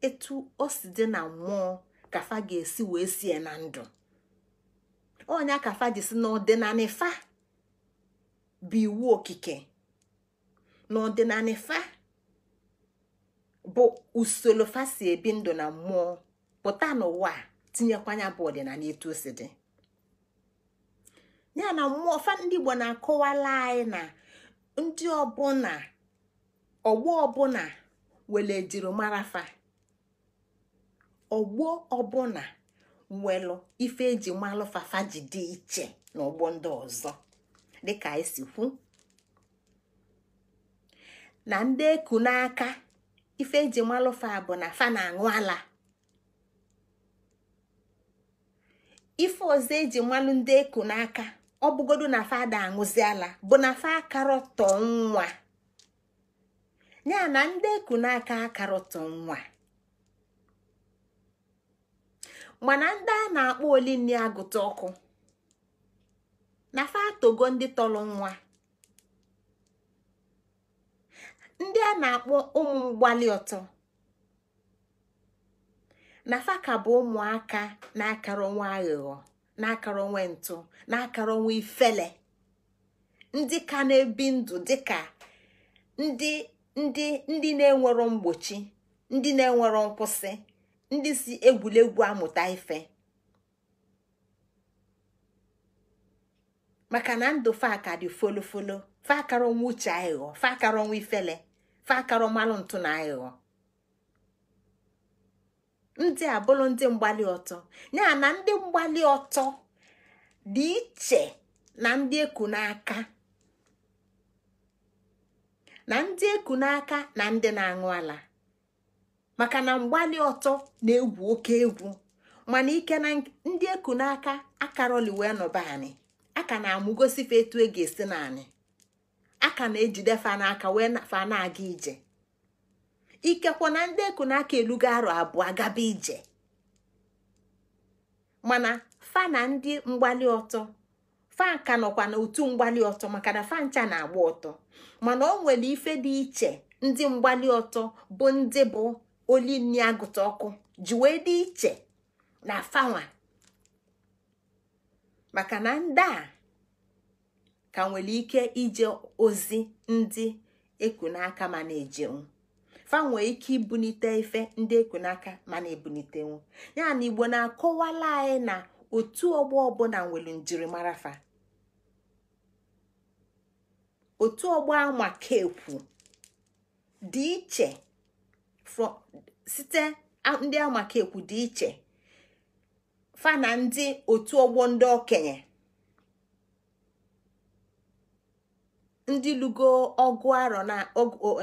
etu o si dị na mmụọ kafa ga-esi wee sie na ndụ onye kafa ji si n'ọdịnala bụ iwu okike n'ọdịnala ifa bụ usoro fasi ebi ndụ na mmụọ pụta n'ụwa tinyekwanya bụ ọdịnala etu o si dị ya na mmụọ fa ndị Igbo na-akọwala anyị na ndị ọbụna ọgbọ ọbụna were ejirimarafa ọgbọ ọbụna welụ ife eji malụ fafa ji dị iche n'ọgbọ ndị ọzọ dịka esi kwu na ndị eku n'aka ife eji malụfa bụ na fa na-aṅụ ala ife ọzọ eji malụ ndị eku n'aka ọ bụgodu na fa ada bụ na fa akarọtọ nwa ya na ndị eku n'aka akarọtọ nwa mana ndị a na-akpọ olini agụta ọkụ na fa ndị tọrọ nwa ndị a na-akpọ ụmụ mgbali ọtọ na fa ka bụ ụmụaka na-akara nwa aghụghọ na-akara onwe ntụ na-akara onwe ifele ndị ka na-ebi ndụ dịka ndị ndị ndị na-enwero mgbochi ndị na-enwero nkwụsị ndị si egwuregwu amụta ife maka na ndụ faka dị folofolo fakara onwe uche aghụghọ fakara onwe ifele fakara mmanụ ntụ na aghụghọ ndị a bụrụ ndị mgbali ọtọ ya na ndị mgbali ọtọ dị iche na ndị eku n'aka na ndị eku n'aka na ndị na-aṅụ ala maka na mgbali ọtọ na-egwu oke egwu mana ike na ndị eku n'aka akaroli wee nọba anyị aka na-amụgosife etu e ga-esi na anyị aka na fa n'aka wee fa na-aga ije ikekwa na ndị eku aka elugo arọ abụọ agaba ije mana fa na ndị mgbali ọtọ fa ka nọkwa otu mgbali ọtọ maka na fa ncha na-agba ọtọ mana ọ nwere ife dị iche ndị mgbali ọtọ bụ ndị bụ oli nni agụta ọkụ ji dị iche na fanwa maka na ndị a ka nwere ike ije ozi ndị ekunaka ma na-ejenwu fa nwee ike ibunite ife ndị n'aka mana ebunitenwu ya na igbo na-akọwala anyị na otu ọgbọ ọbụla nwere njirimara fa otu ọgbọ anwụaka kekwu dị iche site ndị amakekwu dị iche fa na ndị otu ọgbọ ndị okenye ndị lugo ọgụ arọ na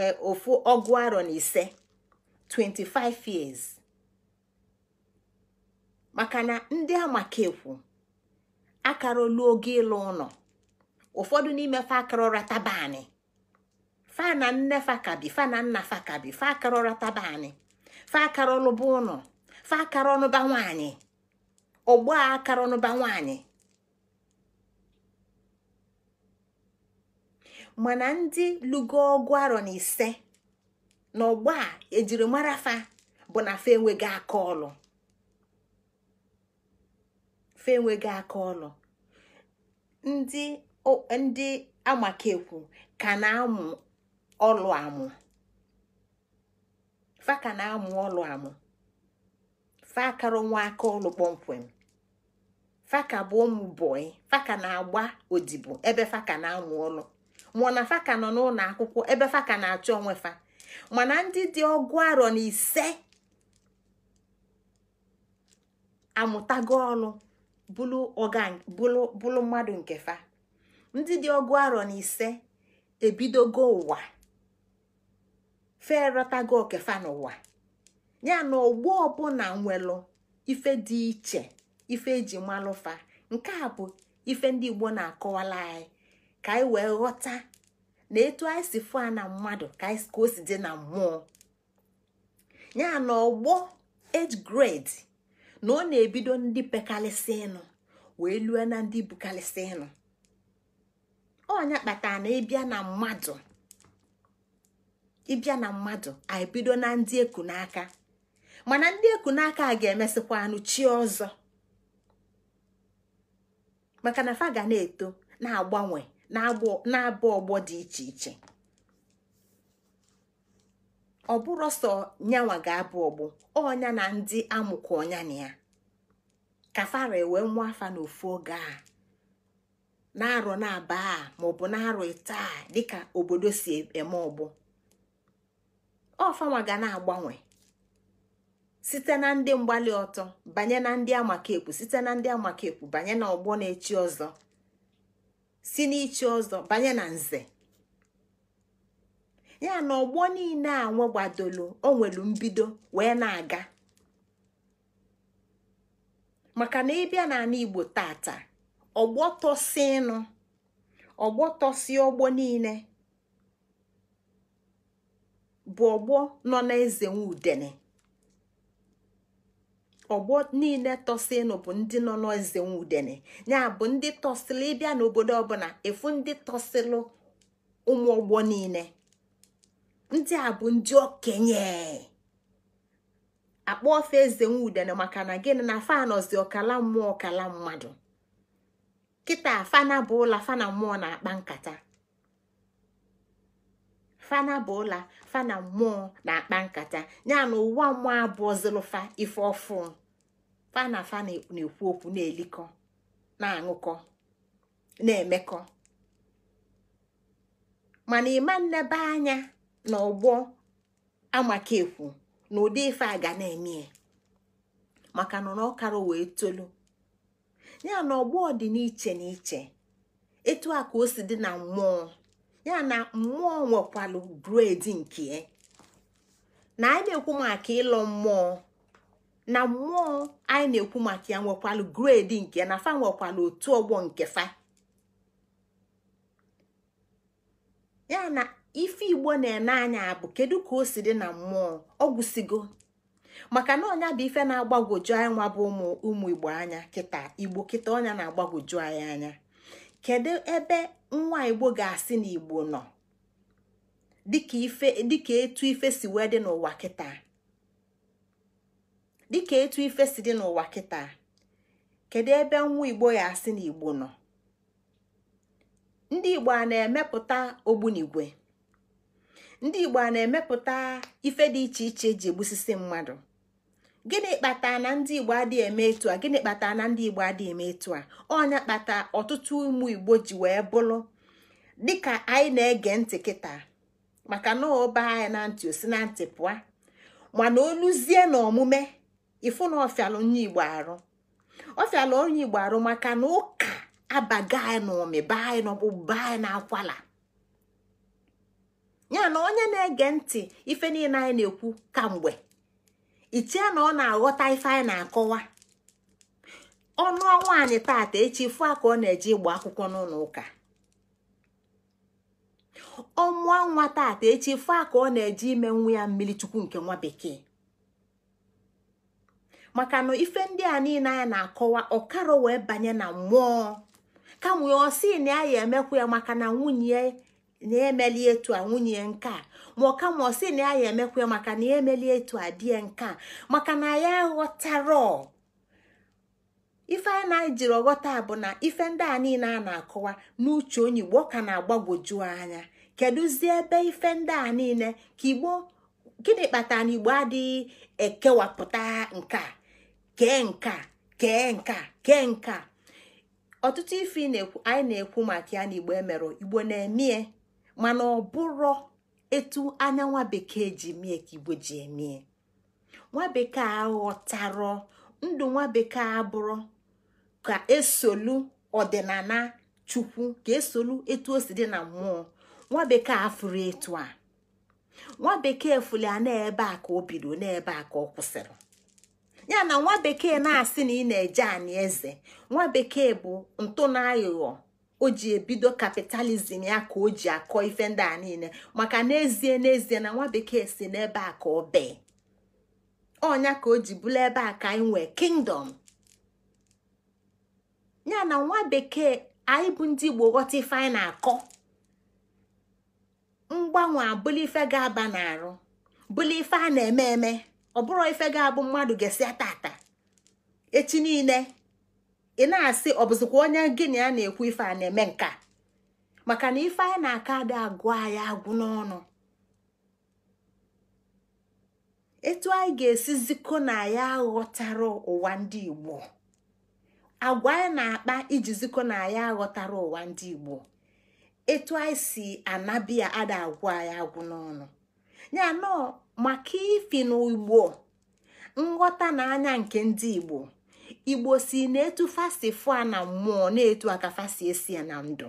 e, ofu ọgụ arọ na ise 25 years maka na ndị akara olu oge ịlụ ụlọ ụfọdụ n'ime fa akarọra tabanị fa na nne kabi fa na nna fakabi fa akarọra tabanị fa akarọlụba ụlọ fa akarọnụba nwaanyị ọgbọ akarọnụba nwaanyị mana ndị lugo ọgụ arọ na ise na ọgba a e ejirimara fa bụ na fa enweghị aka ọlụ fa enweghị aka ọlụ ndị ndị amakekwu ka na-amụ ọlụ amụ fa ka na-amụ ọlụ amụ fa akara nwa aka ọlụ kpọmkwem faka bụ ụmụ bọị faka na-agba odibo ebe faka na-amụ ọlụ mụna faka nọ n'ụlọ akwụkwọ ebe faka na-achọ onwe fa mana ndị dị ọgụ arọ na ise amụtago ọnụ bụlụ mmadụ nke fa ndị dị ọgụ arọ na ise ebidogo ụwa ferọtago okefa n'ụwa ya na ọgbọ ọbụla nwelụ ife dị iche ife eji fa. nke a bụ ife ndị Igbo na-akọwala anyị ka anyị wee ghọta na etu anyị si fụ na mmadụ ka o si dị na mmụọ ya na ọgbọ age grade na ọ na-ebido ndị pekalịsị ịnụ wee lue na ndị bukalịsị ịnụ ọnya kpatara na ịbịa na mmadụ ịbịa na mmadụ anyị na ndị eku n'aka mana ndị eku n'aka a ga-emesịkwa anụ chi ọzọ maka na fa ga na-eto na-agbanwe na-abụ ọgbọ dị iche iche ọ bụrụ sọ nyanwa ga-abụ ọgbọ ọnya na ndị amụkọ ọnya na ya ka fara e wee nwa afa n'ofu oge a na-arọ na-aba a maọbụ na-arọ taa a dịka obodo si e, eme ọgbọ ọfanwa ga na-agbanwe site na ndị mgbali ọtọ banye na ndị amakepu site na ndị amakepu banye na ọgbọ na-echi ọzọ si n'ichi ọzọ banye na nze ya na ọgbọ niile a nwegbadolo o nwere mbido wee na-aga maka na ịbịa n'ala Igbo tata ọgbọ tọsịnụ ọgbọ ọgbọ niile bụ ọgbọ nọ na eze nwudene ọgbọ niile tọsịnụ bụ ndị nọ n'eze nwudene ya bụ ndị tọsịlụ ịbịa n'obodo ọbụla efu ndị tọsịlụ ụmụ ọgbọ niile ndị a bụ ndị okenye akpọ ofe eze nwudene maka na gịnị na fanọzi ọkala mmụọ ọkala mmadụ kịta fana bụ ụla fana mmụọ na-akpa nkata fana bụ ụla fana mmụọ na-akpa nkata ya na ụwa mmụọ abụọ zilụfa ife ofu. fa na fa na-ekwu okwu na-elikọ na-aṅụkọ na-emekọ mana ịma nnebe anya na ọgbọ amakekwu na ụdị ife a ga na-eme maka nọ na ọkara wee tolu ya na ọgbọ dị n'iche n'iche etu a ka o si dị na mmụọ ya na mmụọ nwekwalụ bred nke ya na anyị na-ekwu maka ịlọ mmụọ na mmụọ anyị na-ekwu maka ya nwekwalụ gredi nke na fa nwekwalụ otu ọgbọ nke fa ya na ife igbo na-ene anya bụ kedu ka o si dị na mmụọ ọgwụsigo maka na ọnya bụ ife na-agbagwoju anyị nwa bụ ụmụ ụmụ igbo anya kịta igbo kịta ọnya na-agbagwoju anyị anya kedu ebe nwa igbo ga-asị na igbo nọ dịka etu ife si wee dị n'ụwa kịta dịka etu ife si dị n'ụwa kịta kedu ebe nwa igbo ya asị na igbo nọ ndị igbo a na-emepụta ogbunigwe ndị igbo a na-emepụta ife dị iche iche eji egbusisi mmadụ gịnị kpata na ndị igbo adịghị eme etu a gịnị kpatara na ndị igbo adịghị eme etu a ọnya kpata ọtụtụ ụmụ igbo ji wee bụrụ dịka anyị na-ege ntị kịta maka na baa anyị na ntị osi na ntị pụa mana oluzie na omume ifu na ọfịalụ onye igbo arụ ọfịalụ onye igbo arụ maka na ụka abaga anyị na ọmịba anyị na ọgbụgba anyị na akwala ya na onye na-ege ntị ife niile anyị na-ekwu kamgbe ichie na ọ na-aghọta ife anyị na-akọwa ọnụ anyị taata echi fụ ka ọ na-eje ịgba akwụkwọ n'ụlọ ụka ọmụọ nwa taata echi fụ ka ọ na-eje ime nwa ya mmiri chukwu nke nwa bekee maka na ife ndị a niile anyị na-akọwa ọkarọ wee banye na mmụọ kamwe ọ sị na ya emekwa ya maka na nwunye na-emeli etu a nwunye nke ma ọ kama ọ na ya emekwa ya maka na ya emeli etu a die nke maka na ya ghọtara ife anyị na-ejiri ọghọta bụ na ife ndị a niile a na-akọwa n'uche onye igbo ka na-agbagwoju anya zi ebe ife ndị a niile ka igbo gịnị kpatara na igbo adịghị ekewapụta nke a kee nke ọtụtụ ife anyị na-ekwu maka ya na e igbo emerụ igbo na-emie mana ọ bụrụ etu anya nwa bekee ji mie ka igbo ji emie nwa bekee aghọtarọ ndụ nwa bekee abụrụ ka esolu ọdịnala chukwu ka esolu etu o si dị na mmụọ nwa bekee afụrụ etu a nwa bekee fụli a na-ebe a ka o bido n'ebe a ka ọ kwụsịrị ya na nwa bekee na-asị na ị na-eje anyị eze nwa bekee bụ ntụ na aghụghọ o ji ebido kapitalizm ya ka o ji akọ ife ndị a niile maka n'ezie n'ezie na nwa bekee si n'ebe a ka ọ bee ọnya ka o ji bụrụ ebe a ka anyị nwee kingdom ya na nwa bekee anyị bụ ndị igbo ghọta ife anyị na-akọ mgbanwe abụla ife ga-aba n'arụ bụla ife a na-eme eme ọ bụrụ ife ga-abụ mmadụ ga-esi ata echi niile ị na-asị ọ bụzikwa onye gịnị a na-ekwu ife a na-eme nka maka na ife anyị na-aka adị agụ anyị agwụ n'ọnụ etu anyị ga-esi zikọ na ya aghọtara ụwa ndị Igbo agwa anyị na-akpa iji zikọ na ya aghọtara ụwa ndị Igbo etu anyị si anabịa ada agwụ anyị agwụ n'ọnụ maka ifi na nghọta na anya nke ndị igbo igbo si na-etu fasi fụa na mmụọ na-etu aka fasi esi na ndụ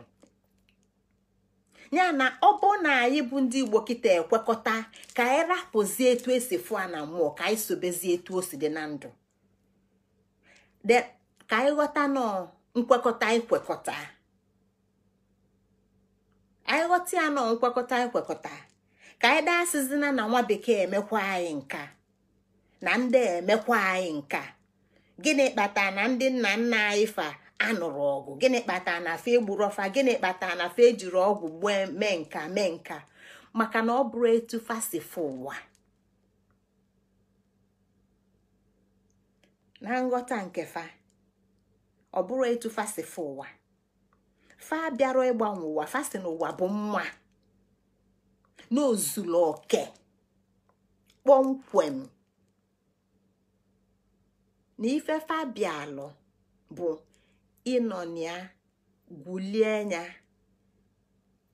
ya na ọ bụ na anyị bụ ndị igbo kịta ekwekọta ka anyị rapụzie etu esi fụa na mmụọ ka anyị sobezie etu o si dị na ndụ ka anyị nọ nkwekọta anyị ya nkwekọta ikwekọta ka anyị asịzina na nwa bekee emekwa anyị nka na ndị emekwa anyị nka gịnị kpataa na ndị nna nna anyị fa anụrụ ọgụ gịnị kpata na fa egburu ọfa gịnị kpatara na fa ejiri ọgwụ gbue mee nka mee nka maka na ọ bụrụ etu fasifụ ụwa na nghọta nke fa ọ bụrụ etu fasifụ ụwa fa bịara ịgbanwe ụwa fasị ụwa bụ mma n'ozuru oke kpọmkwem na ife fabialụ bụ ịnọ ịnọnya gwulie ya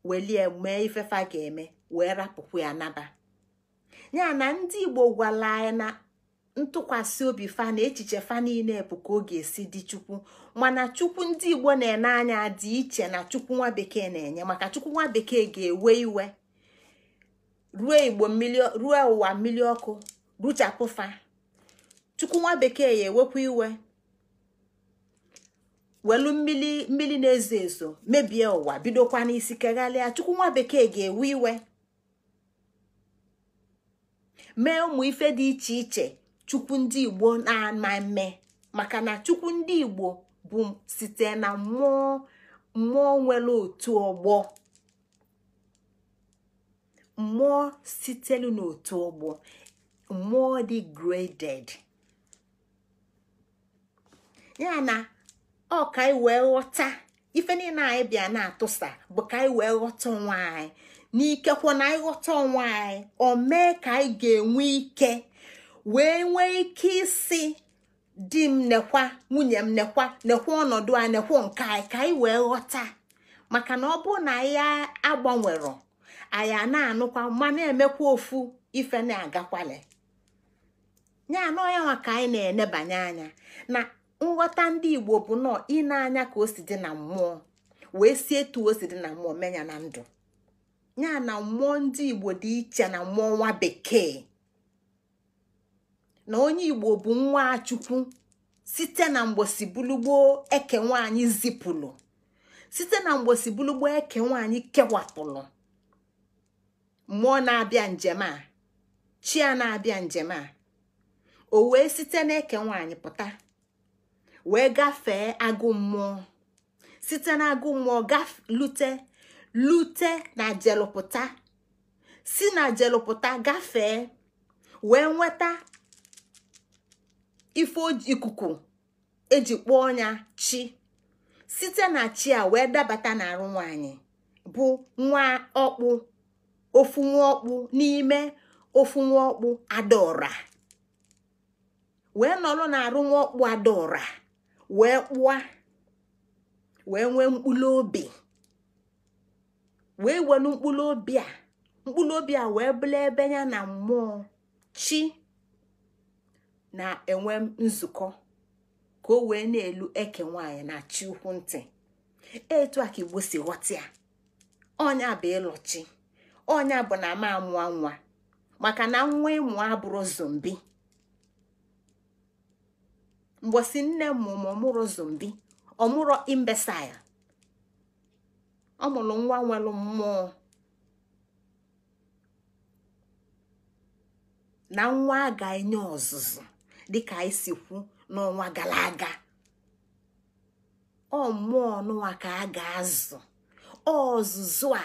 welie mee ifefa ga-eme wee rapụkwu ya naba ya na ndị igbo gwala anyị na ntụkwasị obi fa na echiche fa niile bụ ka ọ ga-esi dị chukwu mana chukwu ndị igbo na-ene anya dị iche na chukwu nwa bekee na-enye maka chukwu nwa bekee ga-ewe iwe ruo igbo ruo ụwa mmiri ọkụ ruchapụfa chukwu nwa bekee ya ewekwa iwe welu mmiri mmiri na-ezo ezo mebie ụwa bidokwa n'isi kegharịa chukwu nwa bekee ga-ewe iwe mee ụmụ ife dị iche iche chukwu ndị igbo na-ama maka na chukwu ndị igbo bụ site na mmụọ mmụọ nwere otu ọgbọ mmụọ sitelu n'otu ọgbọ mmụọ dị graded ya na ọ ka anyị wee ghọta ife niile anyị bịa na-atụsa bụ ka anyị wee ghọta onwe anyị n'ikekwe na anyị ghọta onwe anyị o mee ka anyị ga-enwe ike wee nwee ike isi di m nekwa nwunye m nekwa nekwa ọnọdụ a nekwa nke anyị ka anyị wee ghọta maka na ọ bụrụ na ya agbanwero anyị na-anụkwa ma na-emekwa ofu ife na-agakwale ya anọ ya nwa ka anyị na-enebanye anya na nghọta ndị igbo bụ nọọ ịna anya ka o si dị na mmụọ wee si etu o si dị na mmụọ menya na ndụ ya na mmụọ ndị igbo dị iche na mmụọ nwa bekee na onye igbo bụ nwa chukwu site na mgbosi bulugbo eke nwaanyị zipụlụ site na mgbosi bulugbo eke nwaanyị kewapụlụ mmụọ na-abịa njem a chi a na-abịa njem a o wee site n'eke nwaanyị pụta wee gafee agụ mmụọ site na agụ mmụọ lute lute na jelụpụta si na jelụpụta gafee wee nweta ife ikuku eji kpọọ ya chi site na chi a wee dabata n'arụ nwaanyị bụ nwa ọkpụ ofu nwaọkpụ n'ime ofu nwaọkpụ adaọra wee nọrọ na-arụ nwaọkpụ adaọra wee kpụa wee nwee mkpụrụ obi wee welu mkpụrụ obi a mkpụrụ obi a wee bụla ebe ya na mmụọ chi na-enwe nzukọ ka o wee na-elu eke nwaanyị na chi ukwu ntị etu a ka igbo si ghọta ya ọnya bụ ịlọchi ọnya bụ na m amụọ nwa maka na nwa ịmụọ e abụrụ zombi mgbosi nne m ọmụrụ zombi ọmụrụ imbesail ọmụrụ nwa nwere mmụọ na nwa a enye ọzụzụ dịka anyị si kwu n'ọnwa gara aga ọ mmụọ nụwa ka a ga-azụ ọzụzụ a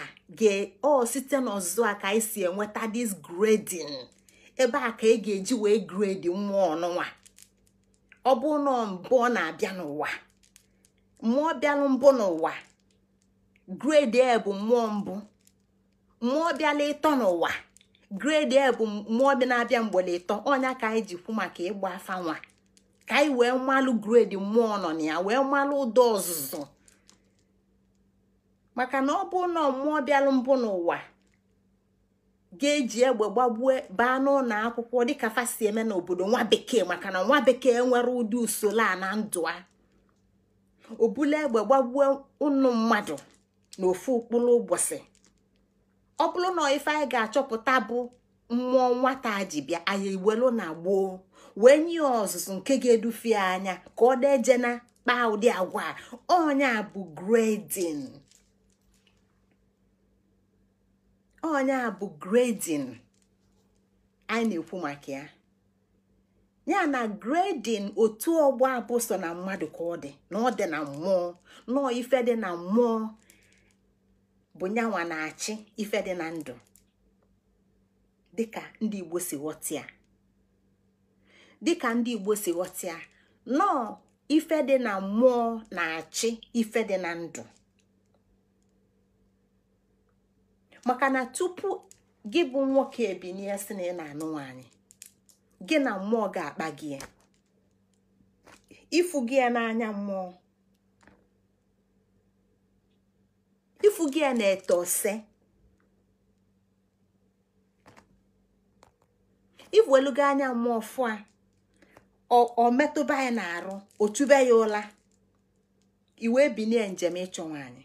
o site n'ọzụzụ a ka anyị si enweta dis grading ebe a ka ị e ga-eji wee gredi mmụọ ọnụnwa ọ bụ na mbụ ọ na-abịa n'ụwa mmụọ bịalụ mbụ n'ụwa gredi e bụ mmụọ mbụ mmụọ bịala ịtọ n'ụwa gredi e bụ mmụọ bi na-abịa mgbele ịtọ ọnya ka anyị ji kwu maka ịgba afa nwa ka anyị wee mmalụ gredi mmụọ nọ na ya wee mmalụ ụdọ ọzụzụ maka na ọ bụ na mmụọ bịalụ mbụ n'ụwa ga-eji egbe gbagbue baa n'ụlọ akwụkwọ dịka fasi eme n'obodo nwa bekee maka na nwa bekee nwere ụdị usoro a na ndụ a obule egbe gbagbue ụnụ mmadụ na ofu ụkpụrụ ụbọchị ọ bụrụ na ife anyị ga-achọpụta bụ mmụọ nwata ji bịa anyị iwelu na gboo wee nye ọzụzụ nke ga-edufie anya ka ọ na kpaa ụdị agwa a ọnya bụ gredin onye a bụ gredin anyị na-ekwu maka ya ya na gredin otu ọgbọ abụ so na mmadụ ka ọ dị na ọ dị na mmụọ nọọ ife dị na mmụọ bụ nyanwa na-achị ife dị na ndụ dịka ndị Igbo si Dị dịka ndị Igbo si ghọtịa nọọ ife dị na mmụọ na-achị ife dị na ndụ maka na tupu gị bụ nwoke ebinie si na ị na-anụ nwaanyị gị na mmụọ ga-akpa gị ifu gị ya n'anya mmụọ ifu gị ya na ete ose iwelugo anya mmụọ fụa ọ metụba ya n'arụ o tube ya ụla iwe binie njem ịchọ nwaanyị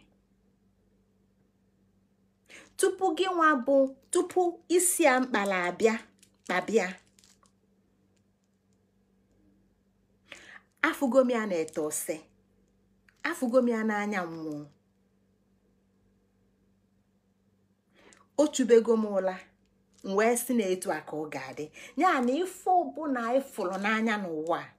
tupu gị nwa bụ tupu isi a mkpala abịa kpabịa afọ ya na-ete ose afọ ya n'anya mmụọ o m ụla m wee si na a ka ọ ga-adị ya na ife na ịfụrụ n'anya n'ụwa a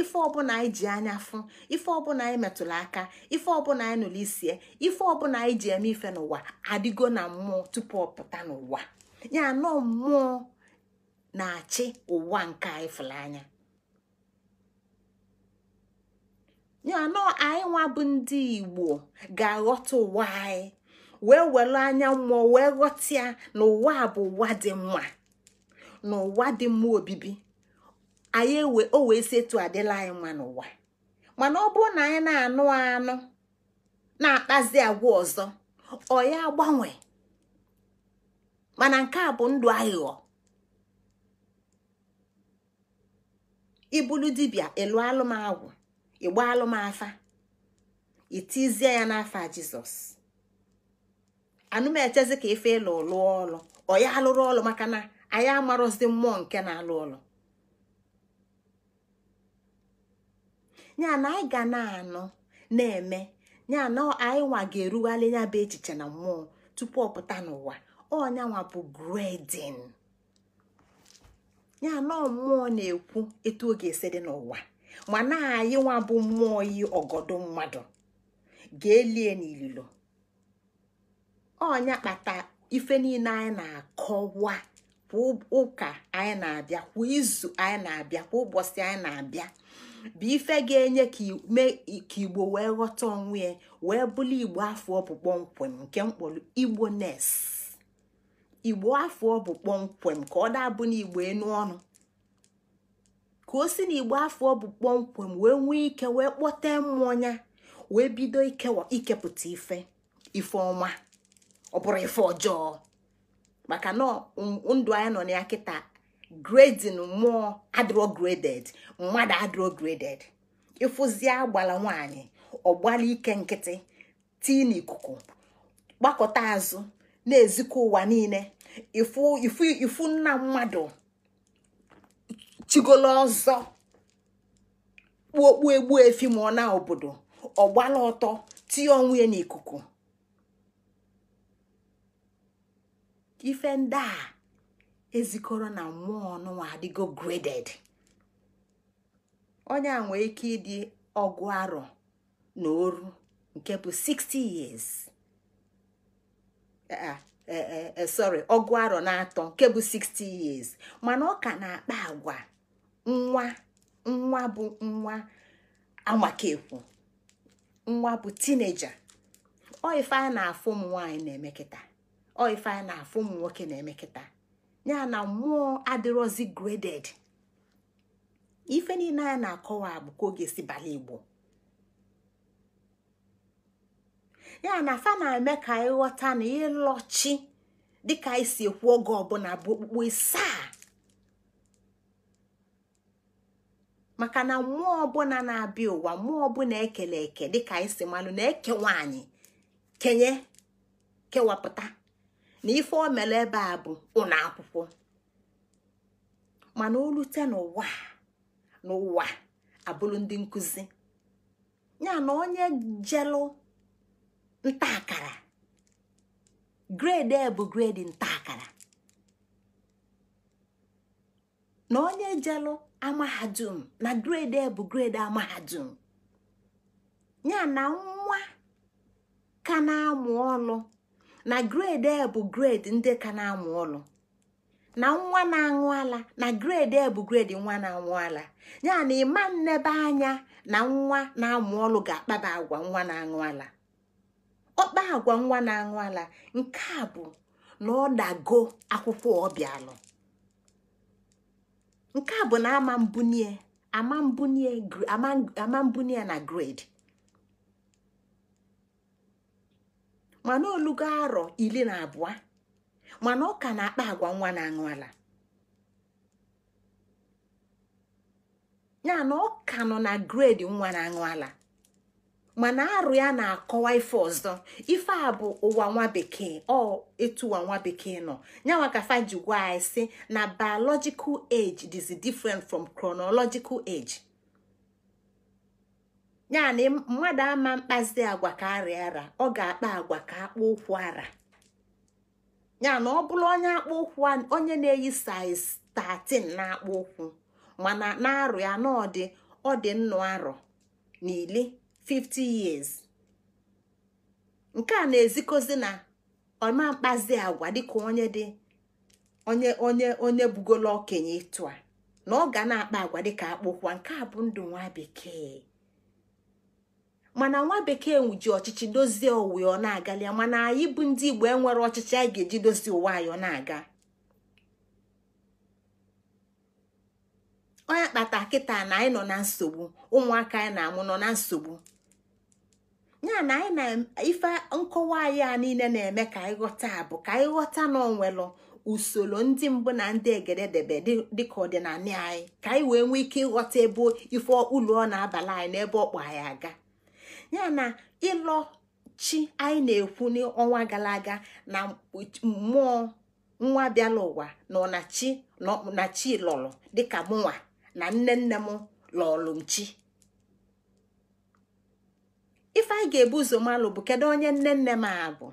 ife ọbụla anyị ji anya fụ ife ọbụla anyị metụrụ aka ife ọbụla anyị nụrụ isie ife ọbụla anyị ji eme ife n'ụwa adịgo na mmụọ tupu ọ pụta n'ụwa ya anọ mmụọ na-achị ụwa nke anyị fụrụ anya ya anọ anyị nwa bụ ndị igbo ga-aghọta ụwa anyị wee were anya mmụọ wee ghọta ya na ụwa bụ ụwa dị mma na ụwa dị mma obibi anyị ewe o wee si etu adịla anyị nwa n'ụwa mana ọ bụrụ na anyị na-anụ anụ na-akpazi agwa ọzọ ọ ya agbanwe mana nke a bụ ndụ aghụghọ ibulu dibia elu alụmagwụ ịgba alụmafa itizie ya jisọs jizọs anụmechezi ka ife ịlụ lụọ ọlụ ọ ya alụrụ ọlụ maka na anyị amarụzi mmụọ nke na-alụ ọlụ ya na anyị ga na-anụ na-eme ya na anyị nwa ga-erugharị ya bụ echiche na mmụọ tupu ọ pụta n'ụwa ọnyanwa bụ gredin ya na mmụọ na-ekwu etu ọ ga-esi dị n'ụwa mana anyị nwa bụ mmụọ yi ọgọdọ mmadụ ga-elie n'ililo ọnya kpata ife niile anyị na-akọwa kwa ụka anyị na-abịa kwa izu anyị na-abịa kwa ụbọchị anyị na-abịa bụ ife ga-enye ka igbo wee ghọta onwe ya wee bụrụ igbo afọ ọ bụ kpọmkwem nke mkpọrọ igbo nes igbo afọ ọ kpọmkwem ka ọ dabụ n'igbo enu ọnụ ka o si na igbo afọ ọ bụ kpọmkwem wee nwee ike wee kpọte mmụọ wee bido ikepụta ife ife ọma ọ bụrụ ife ọjọọ maka na ndụ anyị nọ na ya kịta grading mmụọ adrograded mmadụ adrograded graded ịfụzie agbala nwanyị ọgbala ike nkịtị tii n'ikuku gbakọta azụ na-ezikọ ụwa niile ifu nna mmadụ chigolo ọzọ kpuokpu egbu efi ma ọ na obodo ọgbala ọtọ tinye onwe n'ikuku ife ndị a ezikọrọ na mmụọ ọnụnwa adịgo graded onye a nwee ike ịdị ọgụ arọ na oru nke bụ 60 years eh, ah, eh, eh, sorry ọgụ arọ na atọ nke bụ 60 years mana ọ ka na-akpa agwa nwa nwa bụ nwa amakekwu nwa bụ teenager ọ ife a na-afụ ụmụ nwaanyị na-emekịta ọ ife na-afụ nwoke na ya na mmụọ adịrọzi graded ife niile anyị na-akọwa bụ ka oge si bala igbo ya na fa na-eme ka anyị ghọta na ịlọchi dịka anyị si ekwu oge ọbụla bụ okpukpe saa maka na mmụọ ọbụla na-abịa ụwa mmụọ ọbụla ekele eke dịka anyị si malụ na eke nwaanyị kenye kewapụta na ife o mere ebe a bụ ụlọ akwụkwọ mana o n'ụwa n'ụwa abụrụ ndị nkụzi ya na onye jelụ nta akara grade e bụ grade nta akara na onye jelụ amahadum na grade e bụ grade amahadum ya na nwa ka na-amụ ọlụ na grade e bụ grade ndị ka na-amụ ọlụ na nwa na-aṅụ ala na grade e bụ grade nwa na-aṅụ ala ya na ịma nnebe anya na nwa na-amụ ọlụ ga-akpaba agwa nwa na-aṅụ ala ọkpa agwa nwa na-aṅụ ala nke a bụ na ọ dago akwụkwọ ọbịalụ nke a bụ na ama mbunie ama mbunie na grade mana olugo arọ iri na abụọ mana ọ ka na-akpa agwa nwa na-aṅụ ala ya na ọ ka nọ na gredi nwa na-aṅụ ala mana arụ ya na-akọwa ife ọzọ ife a bụ ụwa nwa bekee ọ etu nwa bekee nọ ya ka fa ji gwa na biological age is different from chronological age. ya na mmadụ ama mkpazi agwa ka arịa ara ọ ga-akpa agwa ka akpa ụkwụ ara ya na ọ bụrụ onye akpa ụkwụ onye na-eyi saiz 13 na-akpụ ụkwụ mana na-arụ ya na ọ dị ọ dị nnụ arọ n'ili 50 years nke a na-ezikozi na ọma mkpazi agwa dịka onye dị onye onye onye bugolo okenye ịtụ a na ọ ga na-akpa agwa dịka akpụkwa nke a bụ ndụ nwa bekee mana nwa bekee ji ọchịchị dozie ụwa ọ na-agalịa mana anyị bụ ndị igbo enwere ọchịchị anyị ga-eji dozie ụwa anyị ọ na-aga onye kpata kịta na anyị nọ na nsogbu ụmụaka anyị na-amụ nọ na nsogbu ya na anyị na ife nkọwa anyị a niile na-eme ka anyị ghọta bụ ka anyị ghọta na onwelụ usoro ndị mbụ na ndị egede debe dịka ọdịnala anyị ka anyị wee nwee ike ịghọta ebe ife ụlọ ọ na-abala anyị na ebe ọkpọ anyị aga ya na ịlọ chi anyị na-ekwu n'ọnwa gara aga na mmụọ nwa bịala ụwa na na chi lọrọ dịka mụnwa na nne nne m lọrụ m chi ife anyị ga-ebu ụzọ malụ bụ kedu onye nne nne m a bụ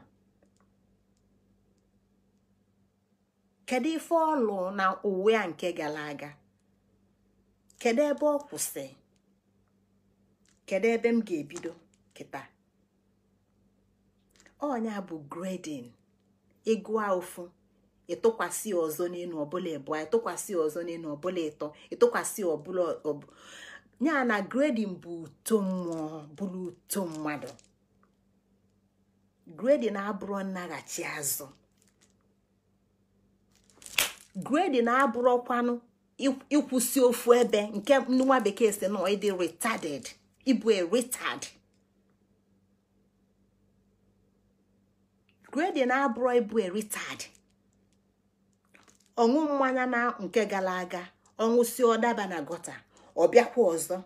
kedu ife ọlụ na uwe a nke gara aga kedu ebe ọ kwụsị kedu ebe m ga-ebido kịta ọnya bụ gredin ịgụa ụfụ ịtụkwasị ọzọ n'elu ọbụla ịbụa ịtụkwasị ọzọ n'elu ọbụla ịtọ ịtụkwasị ọbụla ya na gredin bụ uto mmụọ bụrụ uto mmadụ gredin abụrụ nnaghachi azụ gredin abụrụkwanụ ịkwụsị ofu ebe nke nwa bekee si nọ ịdị retarded ịbụ e retard gredi na-abụrụ ịbụ eritad ọṅụ mmanya na nke gara aga ọṅụ si ọdaba na gọta ọ ọzọ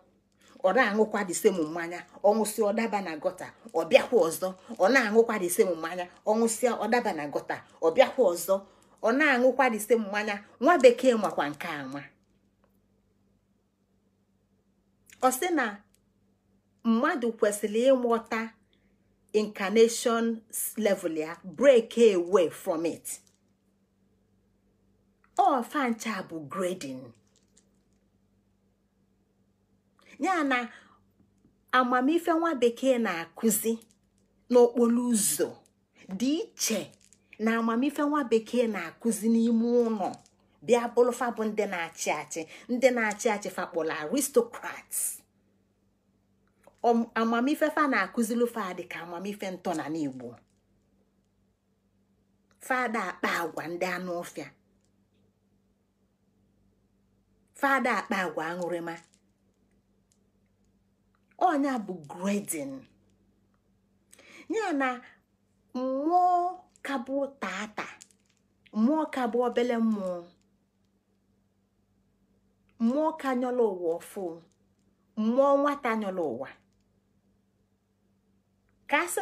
ọ na-aṅụkwa disem mmanya ọṅụsị ọdaba na gọta ọ ọzọ ọ na-aṅụkwa disem mmanya ọṅụsị ọdaba na gọta ọ ọzọ ọ na-aṅụkwa disem mmanya nwa bekee makwa nke ama ọ sị na mmadụ kwesịrị ịmụta incarnation level ya break away from it ofancha bụ grading ya na amamife nwa bekee na-akụzi n'okporo ụzọ dị iche na amamife nwa bekee na-akụzi n'ime ụlọ bịa bụrụfa bụ ndị na-achị achị ndị na-achị achị fakpọrọ aristocrats amamife fa na-akụzilụ fadị ka amamife ntọ na n'igbo fada akpa agwa ndị anụ ụfịa fada akpa agwa aṅụrịma ọnya bụ gredin ya na mmụọ kabụ tata mmụọ kabụ obele mmụọ mmụọ ka nyọla ụwa ọfụ mmụọ nwata nyọla ụwa ka a sị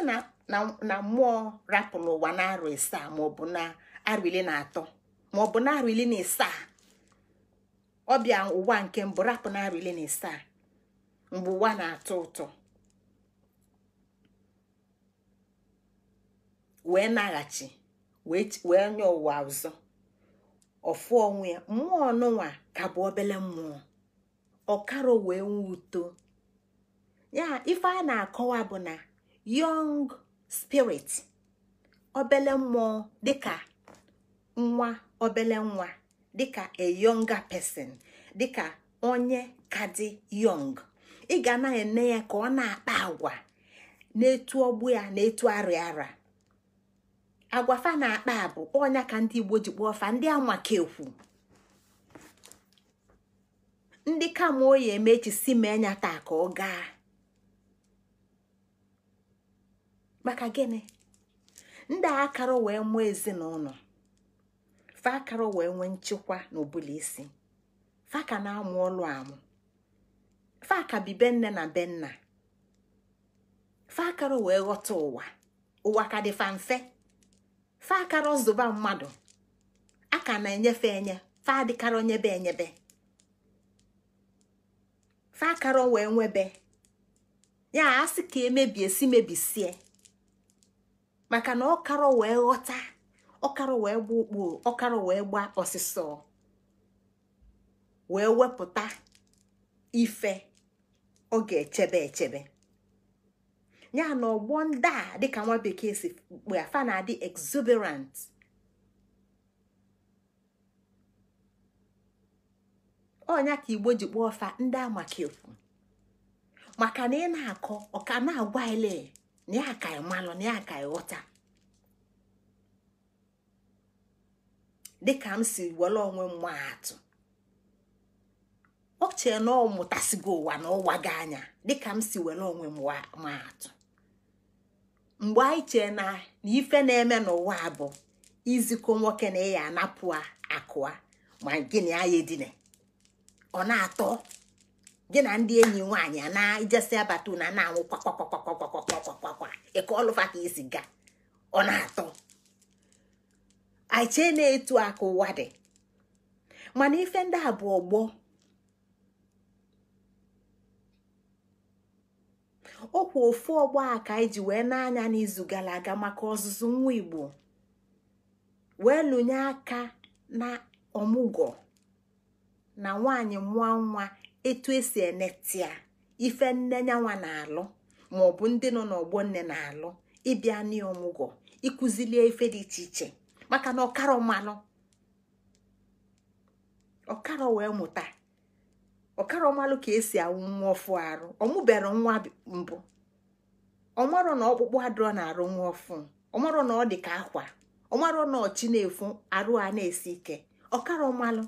na mmụọ rapụ n'ụwa na arụ isaa maọbụ na arụ ile na atọ maọbụ na arụ ile na isaa ọbịa ụwa nke mbụ rapụ na arụ ile na isaa mgbe ụwa na-atọ ụtọ wee naghachi wee nye ụwa ọzọ ọfụ onwe ya mmụọ ọnụnwa ka bụ obele mmụọ ọkara wee nwee uto ya ife a na-akọwa bụ na yong spirit obele mmụọ dịka nwa obele nwa dịka a younger person dịka onye ka dị ị ga na-ene ya ka ọ na-akpa agwa na-etu ọgbụ ya na-etu arịa ara agwafa na-akpa bụ ọnya ka ndị Igbo ji kpọọ fa ndị amakekwu ndị kamoyi emechi si mee nya taa ka ọ gaa maka gịnị ndị akara wee mụọ ezinụlọ fa wee nwee nchekwa n'obula isi fa na-amụ ọlụ amụ fa ka bi be na benna nna fa akara wee ghọta ụwa ụwa ka dị fa mfe fa akara mmadụ aka na-enyefe enye fa adịkara onyebe enyebe fa akara wee nwebe ya asị ka emebie si mebisie maka na karọ wee ghọta karọ wee gba ụkpụrụ karọ wee gba ọsịsọ wee wepụta ife ọ ga-echebe echebe ya na ọgbọ ndị a dịka nwa bekee si kpue na-adị exuberant onya ka igbo ji kpọọ ọfa ndị amakekwu maka na ị na-akọ ọka na-agwa ele na ya ka ịmalụ ya ka ịghọta dịka m si were onwe m atụ ọ chee na ọ mụtasịgo ụwa na ụwa gị anya dịka m si were onwe m atụ mgbe anyị chee na ife na-eme n'ụwa bụ izikọ nwoke na ịya anapụ akụa ma gịnị anyị edine ọ na-atọ gị na ndị enyi nwaanyị na ijesị abata na na-anwụ kwakwakwakwakwakwakwakwakwa ịkọ ọlụfa ka isi ga ọ na-atọ anyị na-etu aka ụwa dị mana ife ndị a bụ ọgbọ ọkwa ofu ọgbọ aka iji wee na-anya n'izu gara aga maka ọzụzụ nwa Igbo wee lụnye aka na ọmụgwọ na nwaanyị mụọ nwa etu esi enetịa ife nne nyanwa na-alụ maọbụ ndị nọ n'ọgbọ nne na-alụ ịbịa n'ọmụgwọ ịkụzilie ife dị iche iche maka na ọkara mmanụ ọkara wee mụta ọkara ọmalụ ka esi awụ nwa ọfụ arụ ọmụbere nwa mbụ ọmarọ na ọkpụkpụ adịrọ na-arụ nwa ọfụ ọmarọ na ọ dị ka akwa ọmarọ na ọchị na-efu arụ a na-esi ike ọkara ọmalụ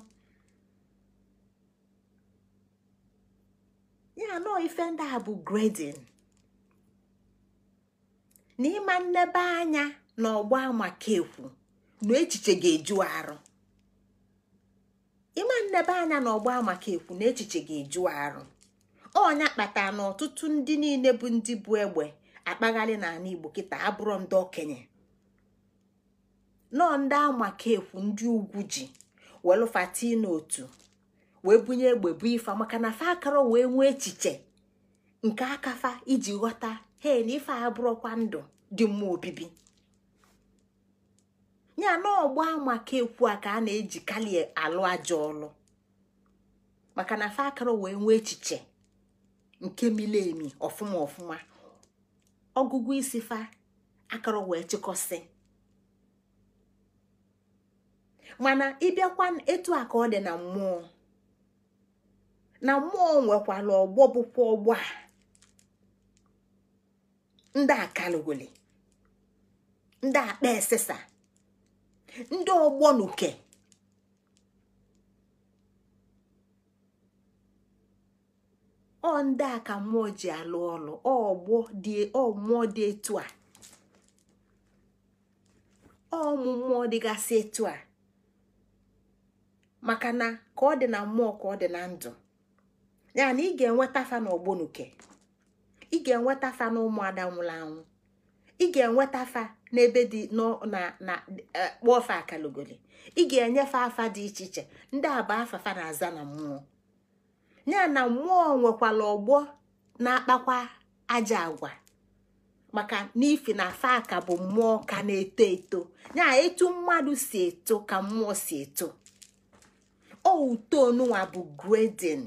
ya anọọ ife ndị a bụ gredin na ịma nnebe anya na ọgba maka ekwu na echiche ga-eju arụ ịma nnebe anya na ọnya kpatara na ọtụtụ ndị niile bụ ndị bụ egbe akpagharị n'ala igbo kịta abụrụ ndị okenye nọọ ndị amaka ekwu ndị ugwu ji welụfata n'otu. wee bunye egbe bu ife maka na fa akara wee nwee echiche nke akafa iji ghọta he na ife abụrụkwa ndụ dị mma obibi ya na ọgba maka ekwu a ka a na eji kalie alụ ajọ ọlụ maka na fa akara wee nwee echiche nke mili emi ọfụma ọfụma ọgụgụ isi fa akara wee chịkọsị mana ịbịakwa etu a ka ọ dị na mmụọ na mmụọ nwekwara ọgbọ bụkwa ọgbọ a ndị akalugoli ndị akpa esesa ndị ọgbọ nuke ọ ndị a ka mmụọ ji alụ ọlụ ọgbọ dị mmụọ dị etu a ọmụ mmụọ dịgasị etu a maka na ka ọ dị na mmụọ ka ọ dị na ndụ ya na ị ga-enweta fa na ị ga-enweta fa na ụmụada nwụrụ anwụ ị ga-enweta fa n'ebe dị na na e, kpọọ fa akalogoli ị ga-enyefe afa dị iche iche ndị a bụ afafa na-aza na mmụọ ya na mmụọ nwekwara ọgbọ na-akpakwa aja agwa maka n'ifi na afa ka bụ mmụọ ka na-eto eto ya etu mmadụ si eto ka mmụọ si eto outonwa bụ gredin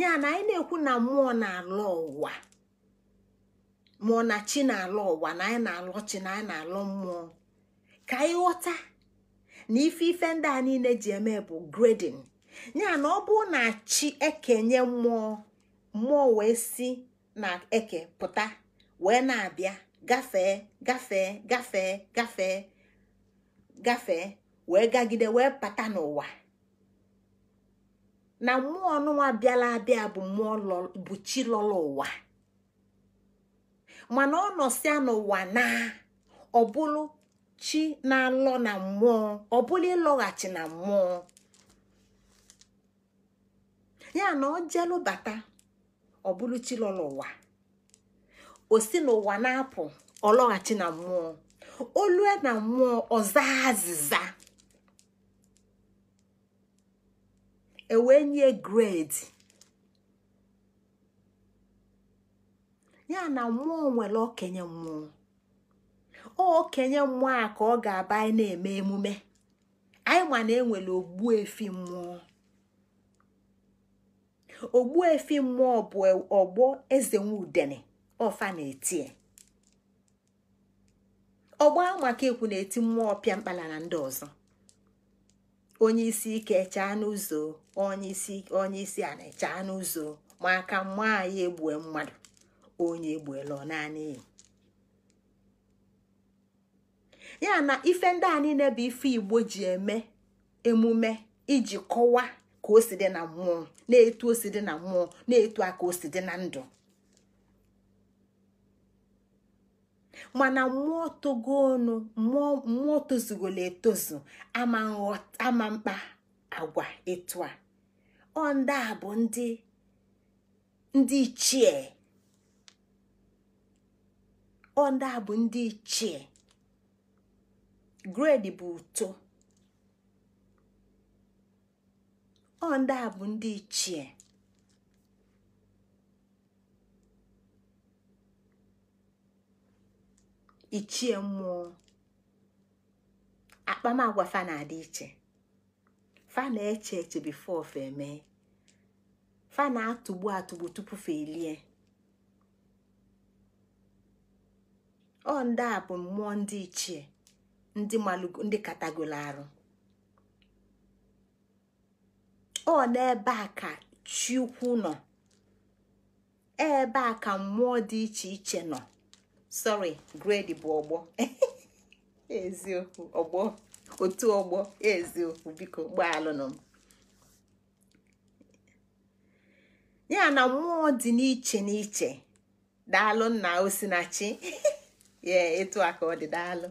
ya na anyị na-ekwu na mmụọ na-alọ ụwa mmụọ na chi na alụ ụwa na anyị na alụ chi na anyị na alụ mmụọ ka anyị ghọta na ife ife ndị a niile ji eme bụ gredin ya na ọ bụrụ na chi ekenye mmụọ mmụọ wee si na eke pụta wee na-abịa gafee gafee gafee gafee gafee wee gagide wee pata n'ụwa na mmụọ ọnụnwa bịala abịa bụ mmụọ bụ chi lọrọ ụwa mana ọ nọsịa n'ụwa na ọ bụrụ chi na-alọ na mmụọ ọ bụrụ ịlọghachi na mmụọ ya na ọ jelụ bata ọ bụrụ chi lọrọ ụwa o si n'ụwa na-apụ ọ lọghachi na mmụọ olue na mmụọ ọza azịza ewee nye gredi ya na mmụọ nwere okenye mmụọ okenye mmụọ a ka ọ ga-aba anyị na-eme emume anyị ma na enwere ogbuefi mmụọ efi mmụọ bụ e, ọgbọ eze nwudene ọfa na-eti e. ọgbọ maka ekwu na-eti mmụọ ọpịa mkpala na ndị ọzọ onye isi ike chaa n'ụzọ onye isi a na-echa n'ụzọ ma aka mma anyị egbue mmadụ onye egbuela naanị ya na ife ndị a niile bụ ife igbo ji eme emume iji kọwa ka o dị na mmụọ na-etu osi dị na mmụọ na-etu aka osi dị na ndụ mana mmụọ togo ọnụ mmụọ tozugolo etozu ama mkpa agwa etu a ọ ndị a bụ ndị ndị ichie ọ ndị a bụ ndị ichie gredi bụ uto ọ ndị a bụ ndị ichie ichie mmụọ akpamagwa fa na-adị iche fa na-eche eche bifo ofe emee fa na-atụgbu atụgbu tupu fa elie ọ ndị a bụ mmụọ ndị ichie ndị malụgo ndị katagolo arụ ọ n'ebe a ka chi ukwu nọ ebe a ka mmụọ dị iche iche nọ sorry grade bụ ọgbọ [LAUGHS] eziokwu ọgbọ otu ọgbọ eziokwu biko gbaalụnụ m ya na mmụọ dị n'iche n'iche daalụ nna osinachi [LAUGHS] ya etu a ka ọ dị daalụ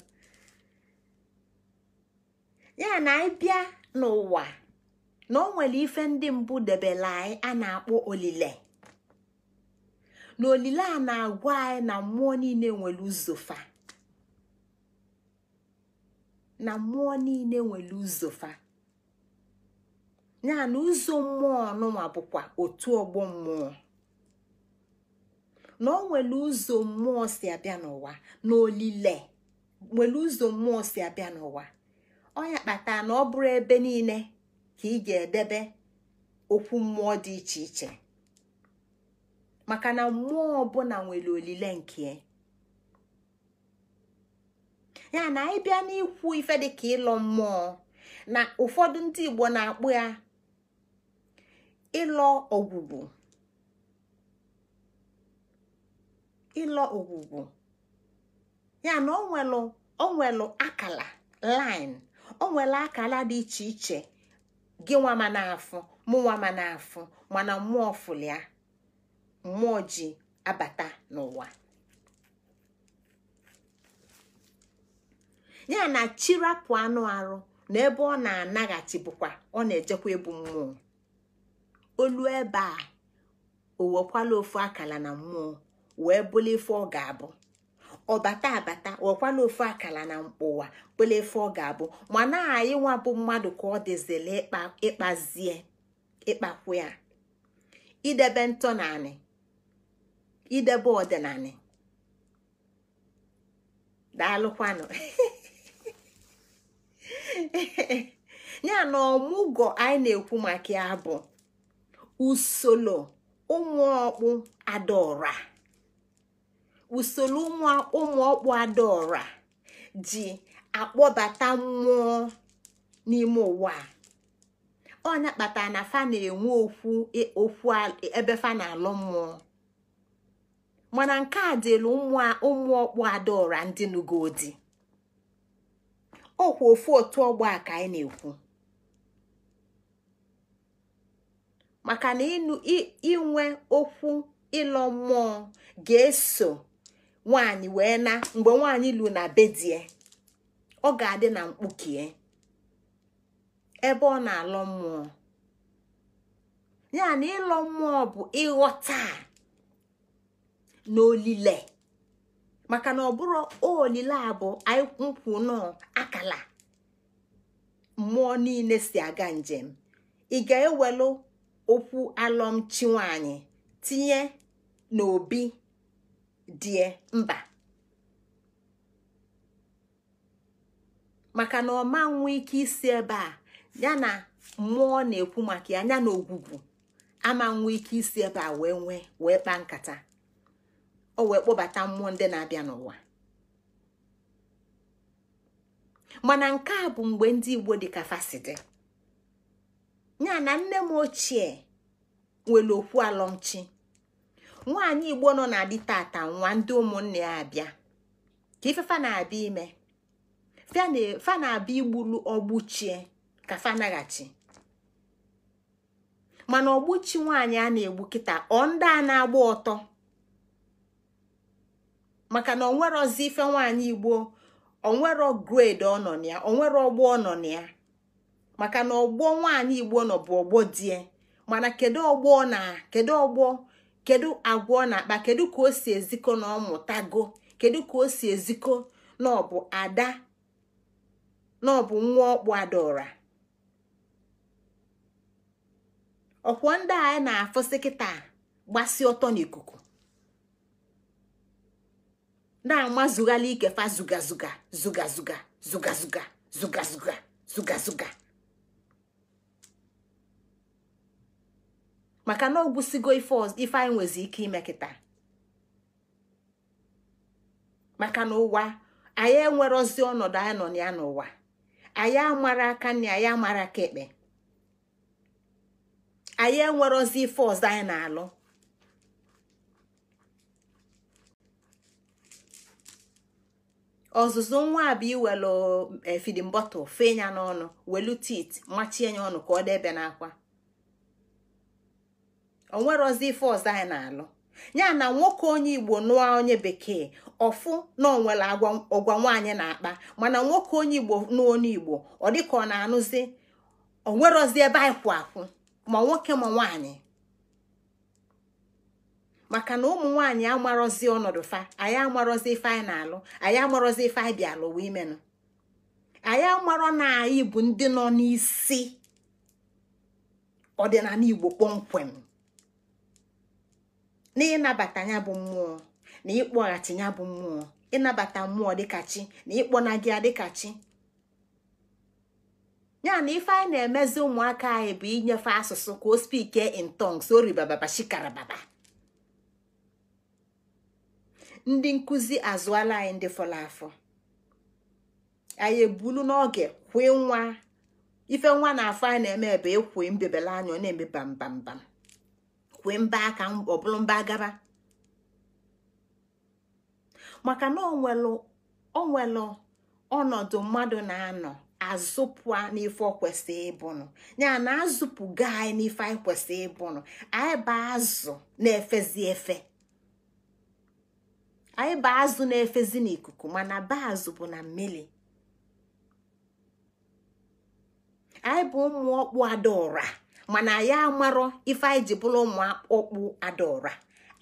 ya na anyị bịa n'ụwa na o nwere ife ndị mbụ debela anyị a na-akpọ olile na olile a na-agwa anyị na mmụọ niile nwere ụzọfa na mmụọ niile nwere ya na ụzọ mmụọ ọnụnwa bụkwa otu ọgbọ mmụọ na ọ nwere ụzọ mmụọ si abịa n'ụwa na olile nwere ụzọ mmụọ si abịa n'ụwa ọnya kpatara na ọ bụrụ ebe niile ka ị ga-edebe okwu mmụọ dị iche iche maka na mmụọ ọbụla nwere olile nke ya na anyị e bịa n'ikwu ife dịka ịlọ mmụọ na ụfọdụ ndị Igbo na-akpụ ya ịlọ ogwugwu ịlọ ọgwụgwụ ya na onwelu nwere akala line onwelu akala dị iche iche gị nwama ma na n'afọ mana mmụọ fụlịa mmụọ ji abata n'ụwa ya na chirapụ anụ arụ na ebe ọ na-anaghachi bụkwa ọ na-ejekwa ebu mmụọ olu ebe a o wekwala ofu akala na mmụọ wee bụla ife ọ ga-abụ ọbata abata wekwala ofu akala na ụwa bụla ife ọ ga-abụ mana anyị nwa bụ mmadụ ka ọ dịzila ịkpazie ịkpakwu ya idebe ntọ na idebe ọdịnala daalụkwanụ [LAUGHS] ya na ọmụgwọ anyị na-ekwu maka ya bụ usoro ụmụọkpụ adaọra usoro ụmụọkpụ adaọra ji akpọbata mmụọ n'ime ụwa ọ na-akpata na fa na-enwe okwu e, okwu ebe fa na-alụ mmụọ mana nke a dịrị ụmụ ọkpụ adaora ndị nugodi ọkwa ofu otu ọgbọ a ka anyị na-ekwu maka na inwe okwu ịlọ mmụọ ga-eso nwanyị wee na mgbe nwanyị lu na bedie ọ ga-adị na mkpukie e, ebe ọ na-alọ mmụọ ya na ịlọ mmụọ bụ ịghọta a. n'olile maka na ọ bụrụ olile a bụ nkwụ nọ akala mmụọ niile si aga njem ị ga-ewelu okwu alọmchi nwanyị tinye n'obi die mba maka na ọma ike isi ebe a yana mmụọ na-ekwu maka ya ya na ogwugwu ama ike isi ebe a wee nwee wee kpaa nkata o wee kpọbata mmụọ ndị na-abịa n'ụwa mana nke a bụ mgbe ndị igbo dị ka fasidi ya na nne m ochie nwere okwu alọmchi nwaanyị igbo nọ na adị tata nwa ndị ụmụnne ya abịa ka ifefa na-abịa ime fa na-abịa igbulu ọgbuchie ka fa mana ọgbuchi nwaanyị a na-egbu kịta ọ ndị a na-agba ọtọ maka na onwerozi ife nwaanyị igbo onwere grade ọ nọ na ya onwere ọgbọ ọ nọ na ya maka na ọgbọ nwaanyị igbo nọ bụ ọgbọ die mana kedu ọgbọ na kedu ọgbọ kedu agwa na-akpa kedu ka o si eziko na ọ kedu ka o si eziko na ọ bụ ada na ọ bụ nwa ọkpụ adaora ọkwọ ndị anyị na-afụsị kịta gbasi ọtọ n'ikuku na-amazughala ike fa zugazuga zugazuga zugazuga zugazuga zugazuga maka na ogwụsigo ife anyị nwezi ike ime kịta maka na ụwa anyị enwere ozi ọnọdụ anyị nọ ya n'ụwa anyị amara aka nri anyị amara aka ekpe anyị enwere ozi ife ọzọ anyị na-alụ ọzụzụ nwa bụ iwelu eh, fidin bọtụl fee ya n'ọnụ welu tit machie ya ọnụ ka ọ debe n'akwa onwerozi ife ọzọ anyị na-alụ ya na nwoke onye igbo nụọ onye bekee ọfụ na onwere ọgwa nwaanyị na-akpa mana nwoke onye igbo nụọ onye igbo ọ dịka ọ na-anụzi onwerozi ebe anyị kwụ akwụ ma nwoke ma nwaanyị maka na ụmụ nwaanyị amarọzi ọnọdụ fa anyị amarozi ife anyị na-alụ anyị amarozi ife anyị bịa alụwa imenụ anyị amarọ na anyị bụ ndị nọ n'isi ọdịnala igbo kpọmkwem na ịnabata ya bụ mmụọ na ịkpọghachi ya bụ mmụọ ịnabata mmụọ dịka chi na ịkpọnaghị ya dịka chi ya na ife anyị na-emezi ụmụaka anyị bụ inyefe asụsụ ka o spike in tongues oribababa shikarababa ndị nkụzi azụọla anyị ndị fọrọ afọ anyị ebulu n'oge kwe nwa ife nwa na-afọ anyị na-eme ebe ekwe mbebele anya na-eme bambambam kwe mba aka ọbụrụ mba gaba maka na onwelu ọnọdụ mmadụ na-anọ azụpụa n'ife kwesị ịbụnụ ya na azụpụga anyị n'ife anyị kwesị ịbụnụ anyị bụ azụ na-efezi efe anyị bụ azụ na-efezi n'ikuku mana baazụ bụ na mmiri anyị bụ ụmụ ọkpụ adaọra mana anyị amarọ ife anyị ji bụrụ ụmụ ọkpụ adaọra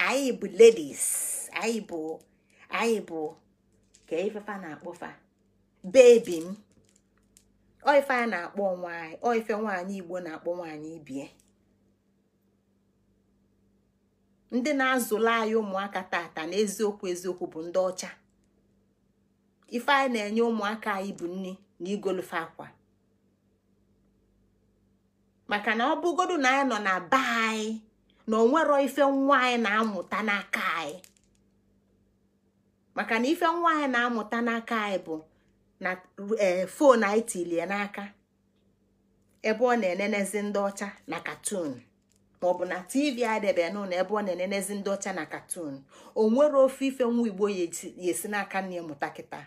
anyị bụ ladies anyị bụ anyị bụ ka ifefa na-akpọfa bebi m oife a na-akpọ nwaanyị oife nwaanyị igbo na-akpọ nwaanyị ibie ndị na-azụlụ anyị ụmụaka tata na eziokwu eziokwu bụ ndị ọcha ife anyị na-enye ụmụaka anyị bụ nri na igolofe akwa maka na ọ bụgodu na anyị nọ na be anyị na onwero ife nwa anyị na-amụta n'aka anyị maka na ife nwa anyị na-amụta n'aka anyị bụ na fon e, anyị tilie n'aka ebe ọ na-enenezi ndị ọcha na katun. maọbụ na tv adebe na ebe ọ na-enenezi ndị ọcha na katun o nwere ofe ife nwa igbo ya esi n'aka nne ya mụta kịta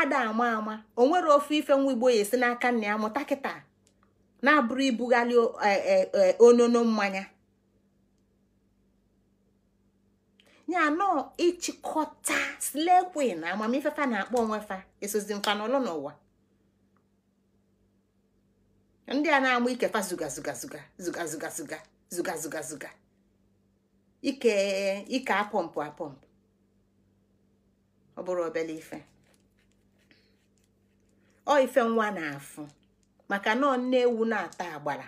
ada ama ama o nwere ofe ife nwa igbo ya esi n'aka nne ya mụta kịta na-abụrụ ibugharị e, e, e, onono mmanya ya nọọ ịchịkọta slekwe na amamifefa na-akpọ onwe fa esozi mfanọlọ n'ụwa ndị a na-amụ ikefa zuga zuga ike ike apọmpụ apọmpụ ọ bụrụ obere ife ọ ife nwa na-afụ maka nọọ nne ewu na-ata agbara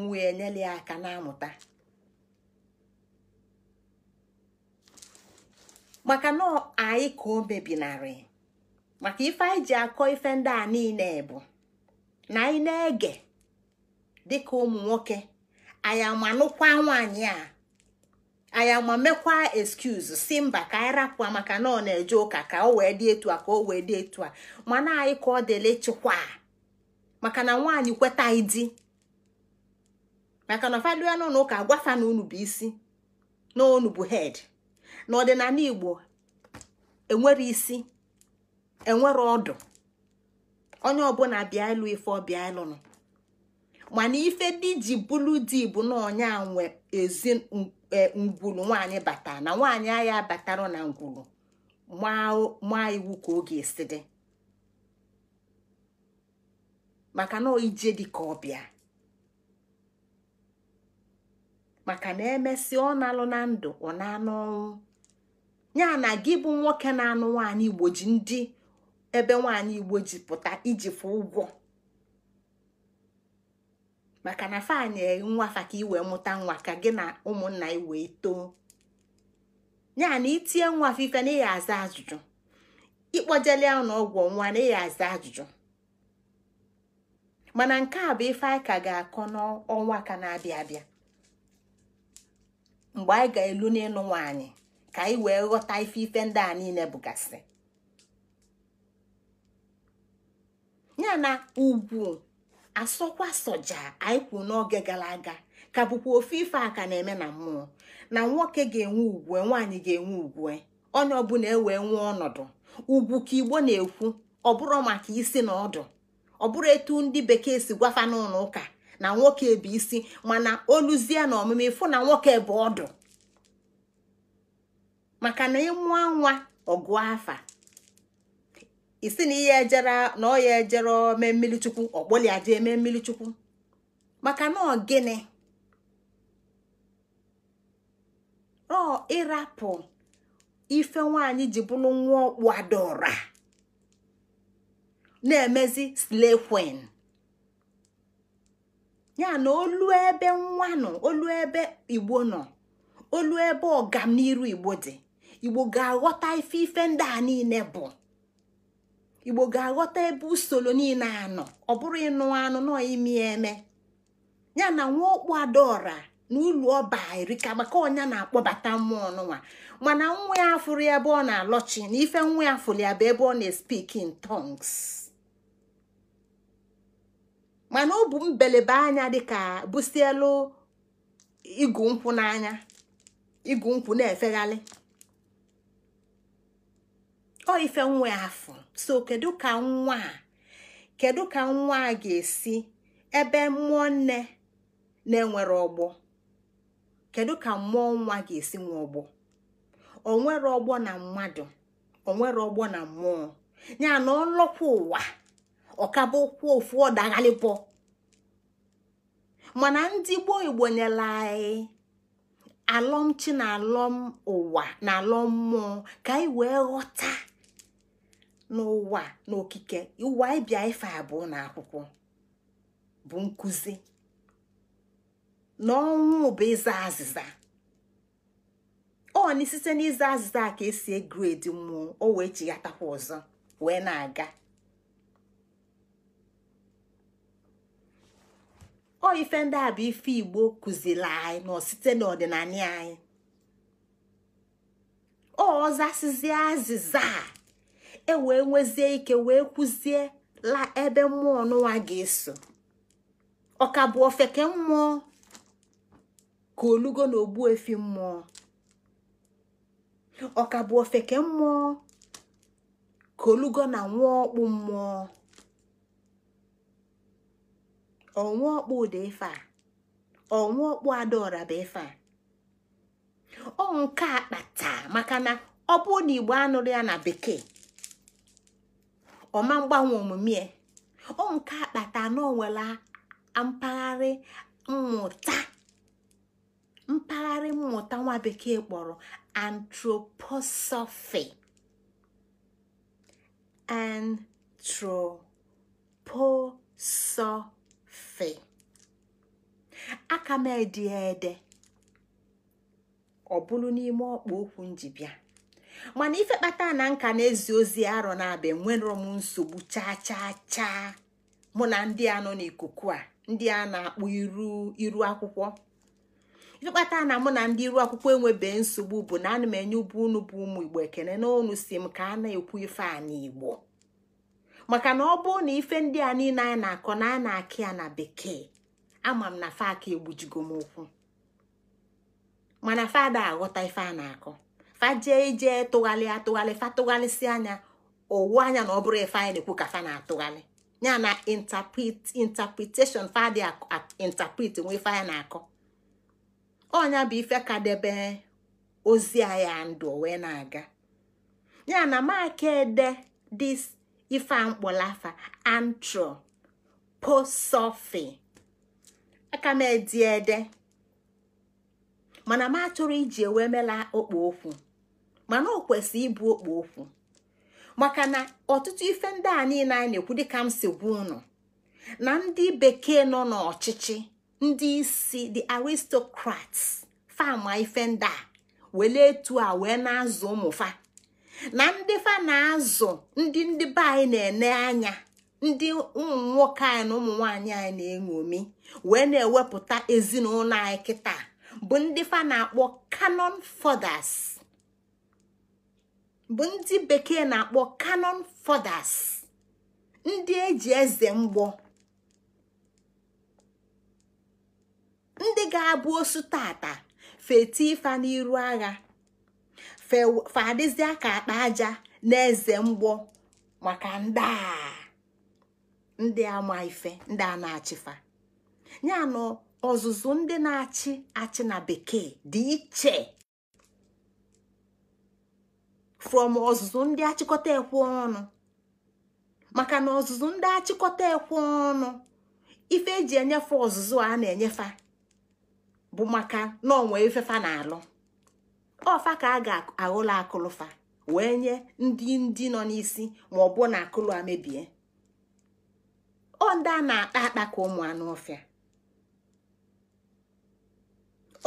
nwa enyela aka na-amụta maka nọọ anyị ka o mebinarị maka ife anyị ji akọ ife ndị a niile bụ na anyị na-ege dịka ụmụ nwoke anyị amanụkwa nwaanyị a anyị ama mekwa excuse si mba ka anyị rapụa maka na ọ na-eje ụka ka o wee dị etu a ka o wee dị etu a mana anyị ka ọ dịla ịchịkwa maka na nwaanyị kweta ịdị maka na fadu ya n'ụlọ ụka agwafa na unu bụ isi na unu bụ head na ọdịnala igbo enwere isi enwere ọdụ onye ọbụla bịa ịlụ ife ọbịa ịlụnụ mana ife dị ji bụlụ di bụ na a nwe ezi e, ngwulu nwaanyị bata na nwaanyị agha batara na ngwulu maa iwu ka oge esi dị maka na ije dị ka ọbịa maka na emesịa ọ na-alụ na ndụ ọ na-anụ ọnwụ ya na gị bụ nwoke na-anụ nwaanyị igbo ji ndị ebe nwaanyị igbo ji pụta iji fụ ụgwọ maka na fanyị nwafa ka i wee mụta nwa ka gị na ụmụnna i wee too ya na itinye nwa ife na ịya aza ajụjụ ịkpọjele na ọgwụ nwa na ịya aza ajụjụ mana nke a bụ ife anyị ka ga-akọ n'ọnwa ka na-abịa abịa mgbe anyị ga-elu n'ịnụ nwaanyị ka anyị wee ghọta ife ife ndị a niile bụgasị ya na ugwu asọkwa soja anyị kwuru n'oge gara aga ka bụkwa ofe ife a ka na-eme na mmụọ na nwoke ga-enwe ugwu nwaanyị ga-enwe ugwu onye ọbụla ewee nwee ọnọdụ ugwu ka igbo na-ekwu ọbụrụ maka isi na ọdụ ọbụrụ etu ndị bekee si gwafa n'ụlọ ụka na nwoke bụ isi mana oluzie na ọmụmụ ịfụ na nwoke bụ ọdụ maka na ịmụọ nwa ọgụ afa isi na ihe ejere na ọ ya ejere mee mmiri chukwu ọkpọlia jee mee mmiri chukwu maka na gịnị ọ ịrapụ ife nwanyị ji bụrụ nwa ọkpụ adọra na-emezi slekwen ya na olu ebe nwa nọ olu ebe igbo nọ olu ebe ọganiru igbo dị igbo ga-aghọta ife ife ndị a niile bụ igbo ga-aghọta ebe usoro niile anọ ọ bụrụ ịnụ anụ nọ imi eme ya na nwa okpu adaora na ụlọ ọba erika maka ọnya na-akpọbata mmụọ nụnwa mana nwa ya afụrụ ebe ọ na-alọchi na ife nwa ya fụrụ ya bụ ebe ọ na-espik in mana ọ bụ mbelebe anya dịka busielu igu nkwụ n'anya igu nkwụ na-efegharị ọ ife nwa ya afụ so kedu ka nwa a kedu ka nwa a ga-esi ebe mmụọ nne na-enwere ọgbọ kedu ka mmụọ nwa ga-esi nwe ọgbọ onwere ọgbọ na mmadụ onwere ọgbọ na mmụọ ya na ọlọkwa ụwa ọkaba okwu ofu ọdaghalịpọ mana ndị gboo igbo nyela anyị alọmchi na alọm ụwa na alọm mmụọ ka anyị wee ghọta n'ụwa n'okike ụwa ịbịa ife abụọ na akwụkwọ bụ nkuzi na ọnwụ bụ ịza azịza ọ na site n'ịza azịza ka esi egred mmụọ o wee chighatakwa ọzọ wee na-aga ọ ife ndị a bụ ife igbo kuzila anyị nọ site n'ọdịnala anyị ọ azịza e wee nwezie ike wee kwuzie la ebe mmụọ n'ụwa ga-eso ọka bụ ofeke mmụọ ka olugo na ogbu efi mmụọ ọka bụ ofeke mmụọ ka olugo na nwa ọkpụ mmụọ ọnwa ọkpụ ụda ife a ọnwa ọkpụ adaọra bụ ife ọ nke maka na ọ na igbo anụrụ ya na bekee ọma mgbanwe omume ọ nke akpata na onwere mpaghara mmụta nwa bekee kpọrọ anthroposophy anthroposophy aka m ede ọ bụrụ n'ime ọkpa okwu bịa mana ife kpata na nka na-ezi ozi arọ na-abịa nwere m nsogbu chaa chaa chaa mụ na ndị a nọ n'ikuku a ndị a na-akpọ iru iru akwụkwọ ife kpata na mụ na ndị iru akwụkwọ enwebe nsogbu bụ na ana m enye ụbụ unu bụ ụmụ igbo ekene n'onu si m ka a na-ekwu ife a n'igbo maka na ọ bụ na ife ndị a niile a na-akọ na a na-akị ya na bekee ama m na faka egbujigo m ụkwụ mana fada aghọta ife a na-akọ fa jee ije tụgharị atụgharị fa tụgharịsị anya owu anya na ọ bụrụ ife anyị na-ekwu ka fa na-atụgharị ya na interpretation fa dị interpret ife na-akọ ọnya bụ ife ka debe ozi anya ndụ wee na-aga ya na maka ede dis ife mkpọlafa antro posofi aka m edi ede mana m achọrọ iji ewee mela okpu okwu mana ọ kwesị ịbụ okpo okwu maka na ọtụtụ ife ndị a niile anyị na-ekwu dịka m si gwa na ndị bekee nọ n'ọchịchị ndị isi the aristocrats fama ife ndị a wele etu a wee na-azụ ụmụfa na ndị fa na-azụ ndị ndị be anyị na-ene anya ndị ụmụ nwoke anyị na ụmụ nwaanyị anyị na-eṅomi wee na-ewepụta ezinụlọ anyị kịta bụ ndị fa na-akpọ canon fathers bụ ndị bekee na-akpọ canon fathers ndị eji eze mgbọ ndị ga-abụ osu tata feti ifa n'iru agha fadịzịa ka akpa aja na eze mgbọ maka ndị a ndị ama ife ndị a na-achịfa ya na ọzụzụ ndị na-achị achị na bekee dị iche from ọzụzụ ndị achịkọta ekwe ọnụ maka na ọzụzụ ndị achịkọta ekwe ọnụ ife eji enyefe ọzụzụ a na-enyefe bụ maka na ọnwa ifefa na-alụ ọfa ka a ga-aghụla akụlụfa wee nye ndị ndị nọ n'isi ma ọ bụ na akụlụ amebie ọ ndị a na-akpa akpa ka ụmụ anụ ọfịa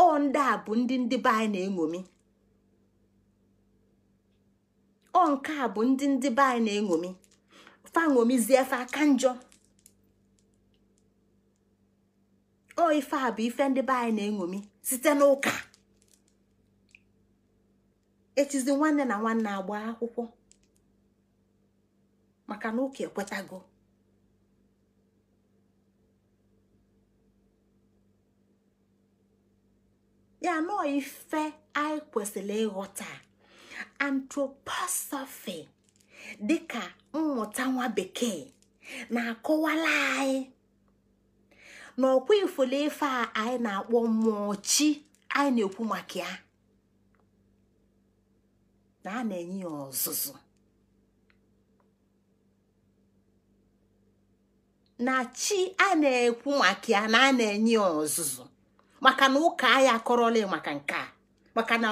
ọ ndị a bụ ndị ndị be anyị na-eṅomi ọ nke a bụ ndị ndị be anyị na-eṅomi fa ṅomizie aka njọ o ife a bụ ife ndị be anyị na-eṅomi site n'ụka echizi nwanne na nwanne agba akwụkwọ maka na ụka ekwetago ya nọọ ife anyị kwesịrị ịghọta dị dịka mmụta nwa bekee na-akọwala anyị na ọkwa ifolo ife a anyị na-akpọ mmụọ chi anyị na-ekwu maka ya na a na-enye ya ọzụzụ na chi a na-ekwu maka ya na a na-enye ya ọzụzụ maka na ụka anyị akọrọla maka nke a maka na.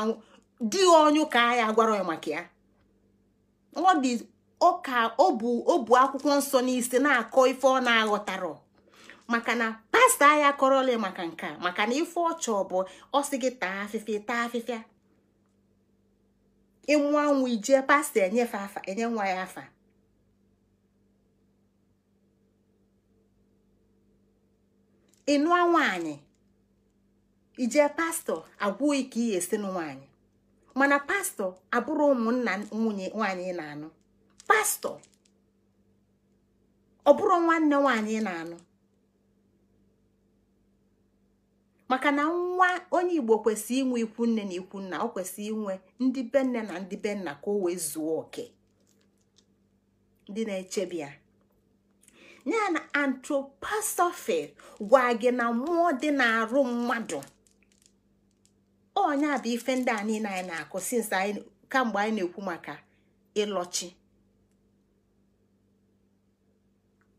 di ọnyụ ka ya gwara ya maka ya ọ dị ọka ọ bụ ọ bụ akwụkwọ nsọ n'isi na-akọ ife ọ na-aghọtarọ maka na pasta ya kọrọla maka nke a maka na ife ọchọ bụ ọ sị gị taa afịfịa taa afịfịa ịnwụ anwụ ijee pasta enyefe afa enye nwa ya afa ịnụa nwaanyị ijee pastọ agwụghị ka ị esi nwaanyị mana pastọ abụrụ ụmụnna nwunye nwaanyị na-anụ pastọ ọ bụrụ nwanne nwanyị na-anụ maka na nwa onye igbo kwesịrị inwe ikwu nne na ikwu nna ọ kwesịrị inwe ndị be nne na ndị be nna ka o wee zuo oke ndị na-echebi ya ya na antroposophy gwa gị na mmụọ dị na arụ mmadụ onye a bụ ife ndị a niile anyị na-akụ since anyị kamgbe anyị na-ekwu maka ịlọchi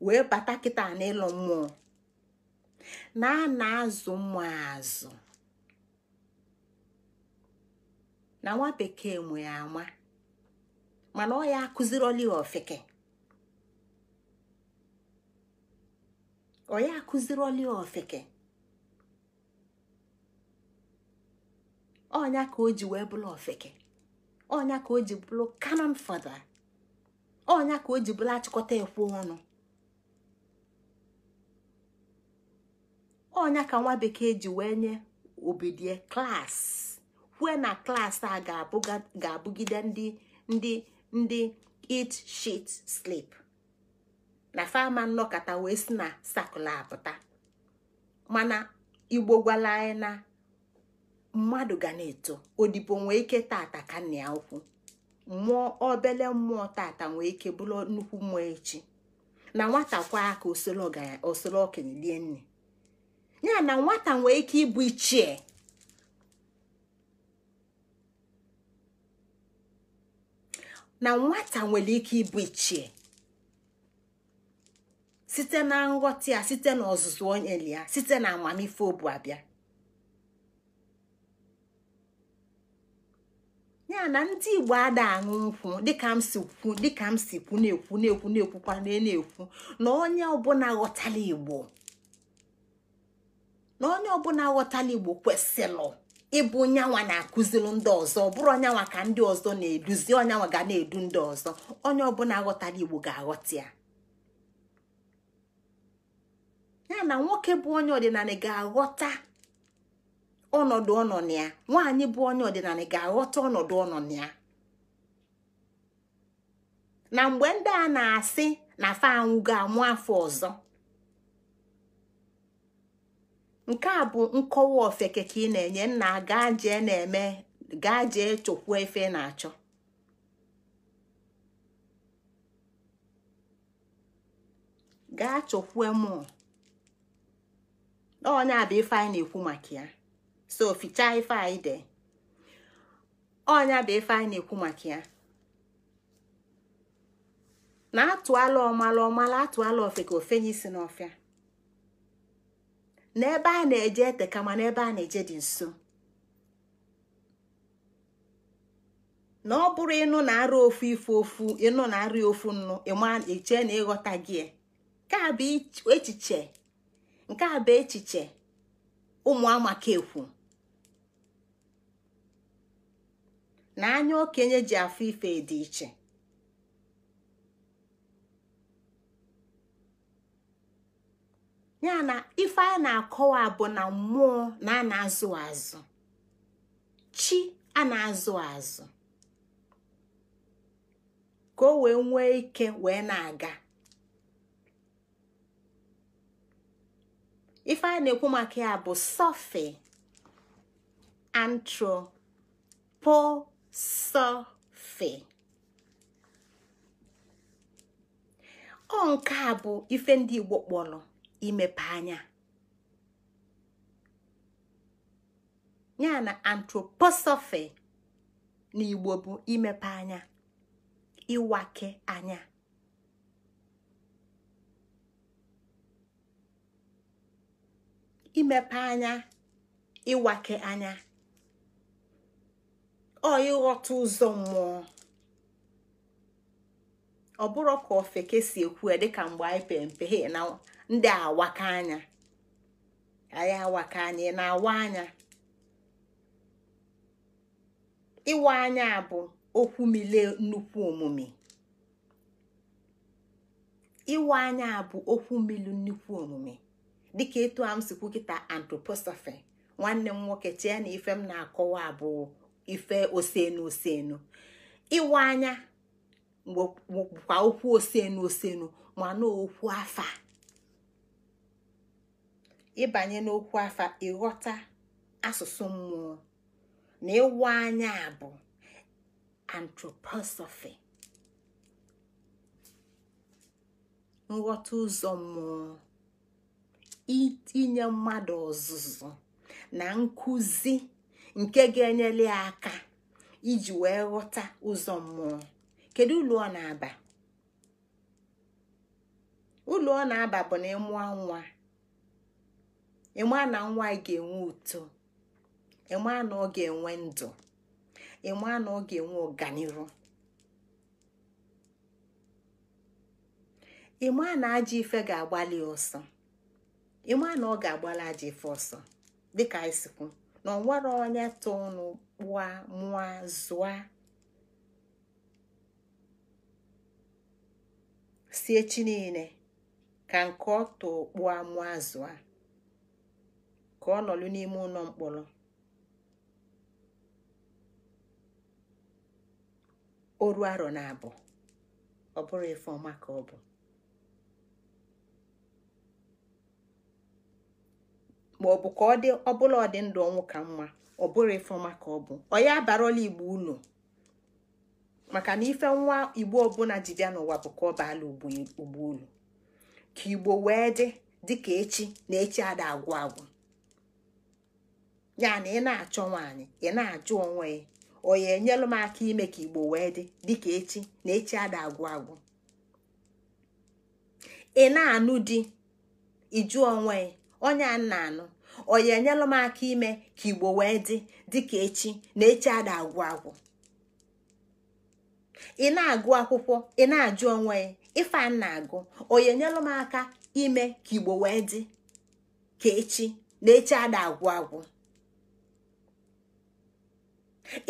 wee bata kịta na ịlọ mmụọ na a na-azụ mmụọ azụ na nwa bekee nwere ya ama mana ọ ya akụziroli ofeke ọ ya ọnya ka o ji wee bụrụ ofeke ọnya ka o ji bụrụ kanon fada ọnya ka o ji bụrụ achịkọta ekwu ọnụ ọnya ka nwa bekee ji wee nye obidie klas kwue na klas a ga-abụgide ndị ndị ndị eat shit slip na fama nnọkọta wee si na sakụl apụta mana igbo gwala anyị na mmadụ ga na-eto odibo nwee ike tata ka nna ya mmụọ obele mmụọ tata nwee ike bụrụ nnukwu mmụọ echi na nwata kwa aka osoro okenye lie nne ya na nwata nwee ike ịbụ ichie na nwata nwere ike ịbụ ichie site na nghọta ya site na ọzụzụ onye ya site na amamife obu abịa ya na ndị igbo ada aṅụ nkwụ dịka m si kwu dịka m si kwu na-ekwu na-ekwu na-ekwukwa na-ekwu na onye ọbụla ghọtala igbo na onye ọbụla ghọtala igbo kwesịrị ịbụ nyanwa na-akụziri ndị ọzọ ọ bụrụ onyanwa ka ndị ọzọ na-eduzi onyanwa ga na-edu ndị ọzọ onye ọbụla ghọtala igbo ga-aghọta ya ya na nwoke bụ onye ọdịnala ga-aghọta ọnọdụ ọnọ na ya nwaanyị bụ onye ọdịnala ga-aghọta ọnọdụ ọnọ na ya na mgbe ndị a na-asị na fa anwụ ga-amụ afọ ọzọ nke a bụ nkọwa ofeke ka ị na-enye nna gaa jee na-eme gaa jee chokwu efe na-achọ gaa chọkwuo m onye a bụ ife anyị na-ekwu maka ya so fichaa ife anyị de ọnya bụ ife anyị na-ekwu maka ya na atụala ọmala ọmala atụala ofe ka ofenye isi n'ọfịa n'ebe a na-eje ete kama n'ebe a na-eje dị nso na ọ bụrụ ịnụ na-arụ ofu ife ofu ịnụ na-arụ ofu nnu ịma eche na ịghọta gị nke a bụ echiche nke a bụ echiche ụmụ amaka ekwu na anya okenye ji afọ ife dị iche ya na ife a na-akọwa bụ na mmụọ na a na-azụ azụ chi a na-azụ azụ ka o wee nwee ike wee na-aga ife a na-ekwu maka ya bụ sọfe antropo sọ ọ nke a bụ ife ndị Igbo kpọrọ imepe anya ya na antroposọfe n'Igbo bụ imepe anya ịwake anya ọ ịghọta ụzọ mmụọ ọ bụrụ ka ofeke si ekwu ya dịka mgbe anyị pere mpe he na ndị awaka anya anyị awaka anya na-awa anya ịwa anya bụ okwu mile nnukwu omume bụ okwu milu nnukwu omume dịka etu a kịta nwanne m nwoke chee na ife m na-akọwa abụọ ife osenu osenu ịwa anya kwa okwu osenu osenu mana okwu afa ịbanye n'okwu afa ịghọta asụsụ mmụọ na ịwa anya bụ antroposofi nghọta ụzọ mmụọ itinye mmadụ ọzụzụ na nkụzi nke ga-enyere ya aka iji wee ghọta ụzọ mmụọ kedu ụlọ ọ na-aba ụlọ ọ na-aba bụ na ịmụọ nwa ịma na nwa ga-enwe uto ịma na ọ ga-enwe ndụ ịma na ọ ga-enwe ọganihu ịma na ajọ ife ga-agbalị ọsọ ịma na ọ ga-agbalị ajọ ife ọsọ dịka anyị na nwere onye tụ kpụa mụa zụa si echi niile ka nke ọ tụ kpụa mụa zụa ka ọ nọlụ n'ime ụlọ mkpọrọ oru arọ na abụọ ọ bụrụ ife ọma ka ọ bụ ma ọ bụ ka ọ dị ọbụla ọ dị ndụ ọnwụ ka mma ọ bụrụ ifoma ka ọ bụ ọ ya igbo ụlọ maka na ife nwa igbo ọbụla ji n'ụwa bụ ka ọ baala ugbo ụlọ ka igbo wee dị dịka echi na echi ada agwụ agwụ ya na ị na-achọ nwaanyị ị na-ajụ onwe ya onye enyelụ m aka ime ka igbo wee dị dịka echi na echi ada agwụ agwụ ị na-anụ di ịjụ onwe ya onye nna anụ oyi enyelụ m aka ime ka igbo wee dị dịka echi na echi ada agwụ agwụ ị na-agụ akwụkwọ ị na-ajụ onwe ya ife a na-agụ oyi enyelụ m aka ime ka igbo wee dị ka echi na echi ada agwụ agwụ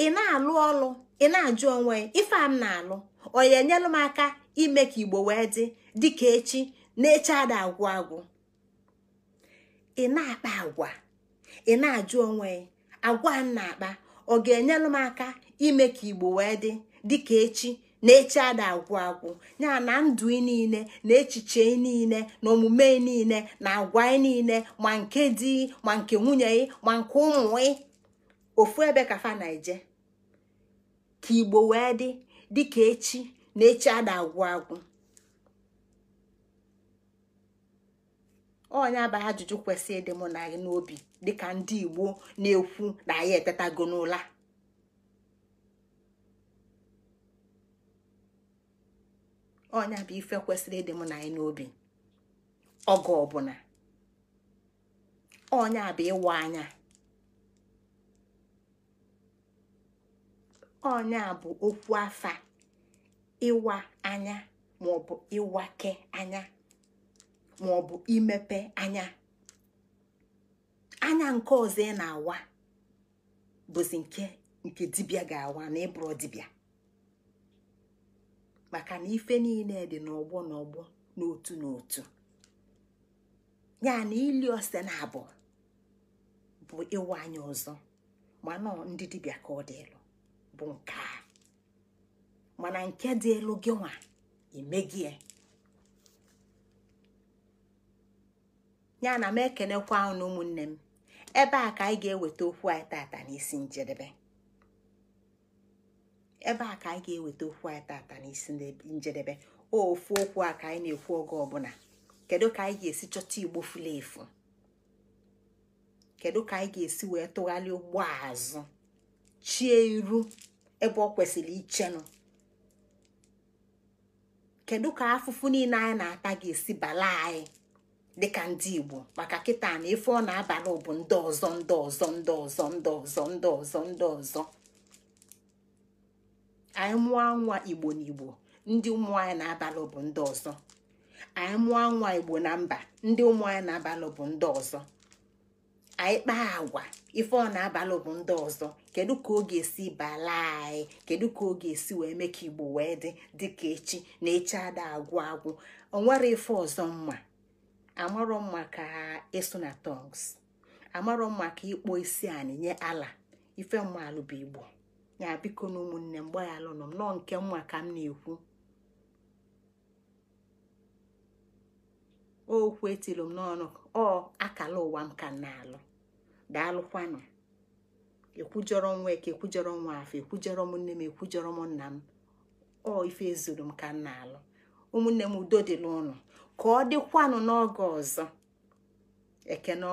ị na-alụ ọlụ ị na-ajụ onwe ya ife a m na-alụ oyi enyelụ m aka ime ka igbo wee dị dịka echi na echi ada agwụ agwụ ị na-akpa agwa ị na-ajụ onwe agwa m na-akpa ọ ga-enyelụ m aka ime ka igbo wee dị dịka echi na echi ada agwụ agwụ ya na ndụ niile na echiche niile na omume niile na agwa niile ma nke di ma nke nwunye ị ma nke ụmụ ị ofu ebe ka na-eje ka igbo wee dị dịka echi na echi ada agwụ agwụ onye abaghị ajụjụ kwesị ịdị mụ na gị n'obi dịka ndị igbo na-ekwu na anyị etetago n'ụla onye bụ ife kwesịrị ịdị mụ na anyị n'obi oge ọbụla onye bụ ịwa anya onye bụ okwu afa ịwa anya maọbụ ịwake anya ma ọ imepe anya anya nke ọzọ ị na-awa bụzi nke nke dibịa ga-awa na ịbụrụ dibịa maka na ife niile dị n'ọgbọ n'ọgbọ n'otu n'otu ya na ili ose na abụọ bụ ịwa anya ọzọ mana ndị dibịa ka ọ dị elu bụ nke a mana nke dị elu gị nwa ya na m ekenekwa unu ụmụnne m ebe a ka anyị ga-eweta okwu anyị tata n'isi njedebe ebe a ka anyị ga-eweta okwu anyị tata n'isi njedebe ofu okwu a ka anyị na-ekwu oge ọbụla kedu ka anyị ga-esi chọta igbo furu efu kedu ka anyị ga-esi wee tụgharịa ụgbọ azụ chie iru ebe ọ kwesịrị ichenụ kedu ka afụfụ niile anyị na-ata ga-esi bala anyị dịka ndị igbo maka kịta na ife ọ na-abalị bụ ndị ọzọ ndị ọzọ ndị ọzọ ndị ọzọ ndị ọzọ ndị ọzọ anyị mụọ nwa igbo na igbo ndị ụmụ anyị na-abalị bụ ndị ọzọ anyị mụọ nwa igbo na mba ndị ụmụ anyị na-abalị bụ ndị ọzọ anyị kpaa agwa ife ọ na-abalị bụ ndị ọzọ kedu ka ọ ga-esi bala anyị kedu ka ọ ga-esi wee mee ka igbo wee dị dịka echi na echi ada agwụ agwụ onwere ife ọzọ mma amarọ mma ka ịsụ na tongs amarọ mma ka ịkpọ isi anị nye ala ife mmalụ bụ igbo ya biko na ụmụnne m gbaghalụ nọ m nọọ nke mma ka m na-ekwu okwu etilu m n'ọnụ ọ akala ụwa m ka na-alụ daalụkwanụ ekwujọrọ nwa eke ekwujọrọ nwa afọ ekwujọrọ m nne m ekwujọrọ m nna m ọ ife zuru m ka m na-alụ ụmụnne m udo dịla ụnụ ka ọ dịkwanụ n'oge ọzọ ekene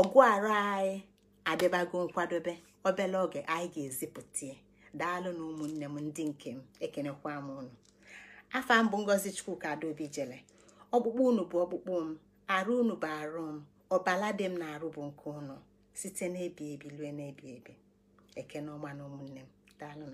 ọgụ arụ anyị adịbago nkwadobe obele oge anyị ga-ezipụta daalụ na ụmụnne m ndị nke m ekenekwa m unu afa mbụ ngozi chukwuka adaobi jele ọkpụkpụ unu bụ ọkpụkpụ m arụ unu bụ arụ m ọbala dị m na arụ bụ nke unu site n'ebi ebi lue n'ebi ebi ekene ọma na ụmụnne m daalụ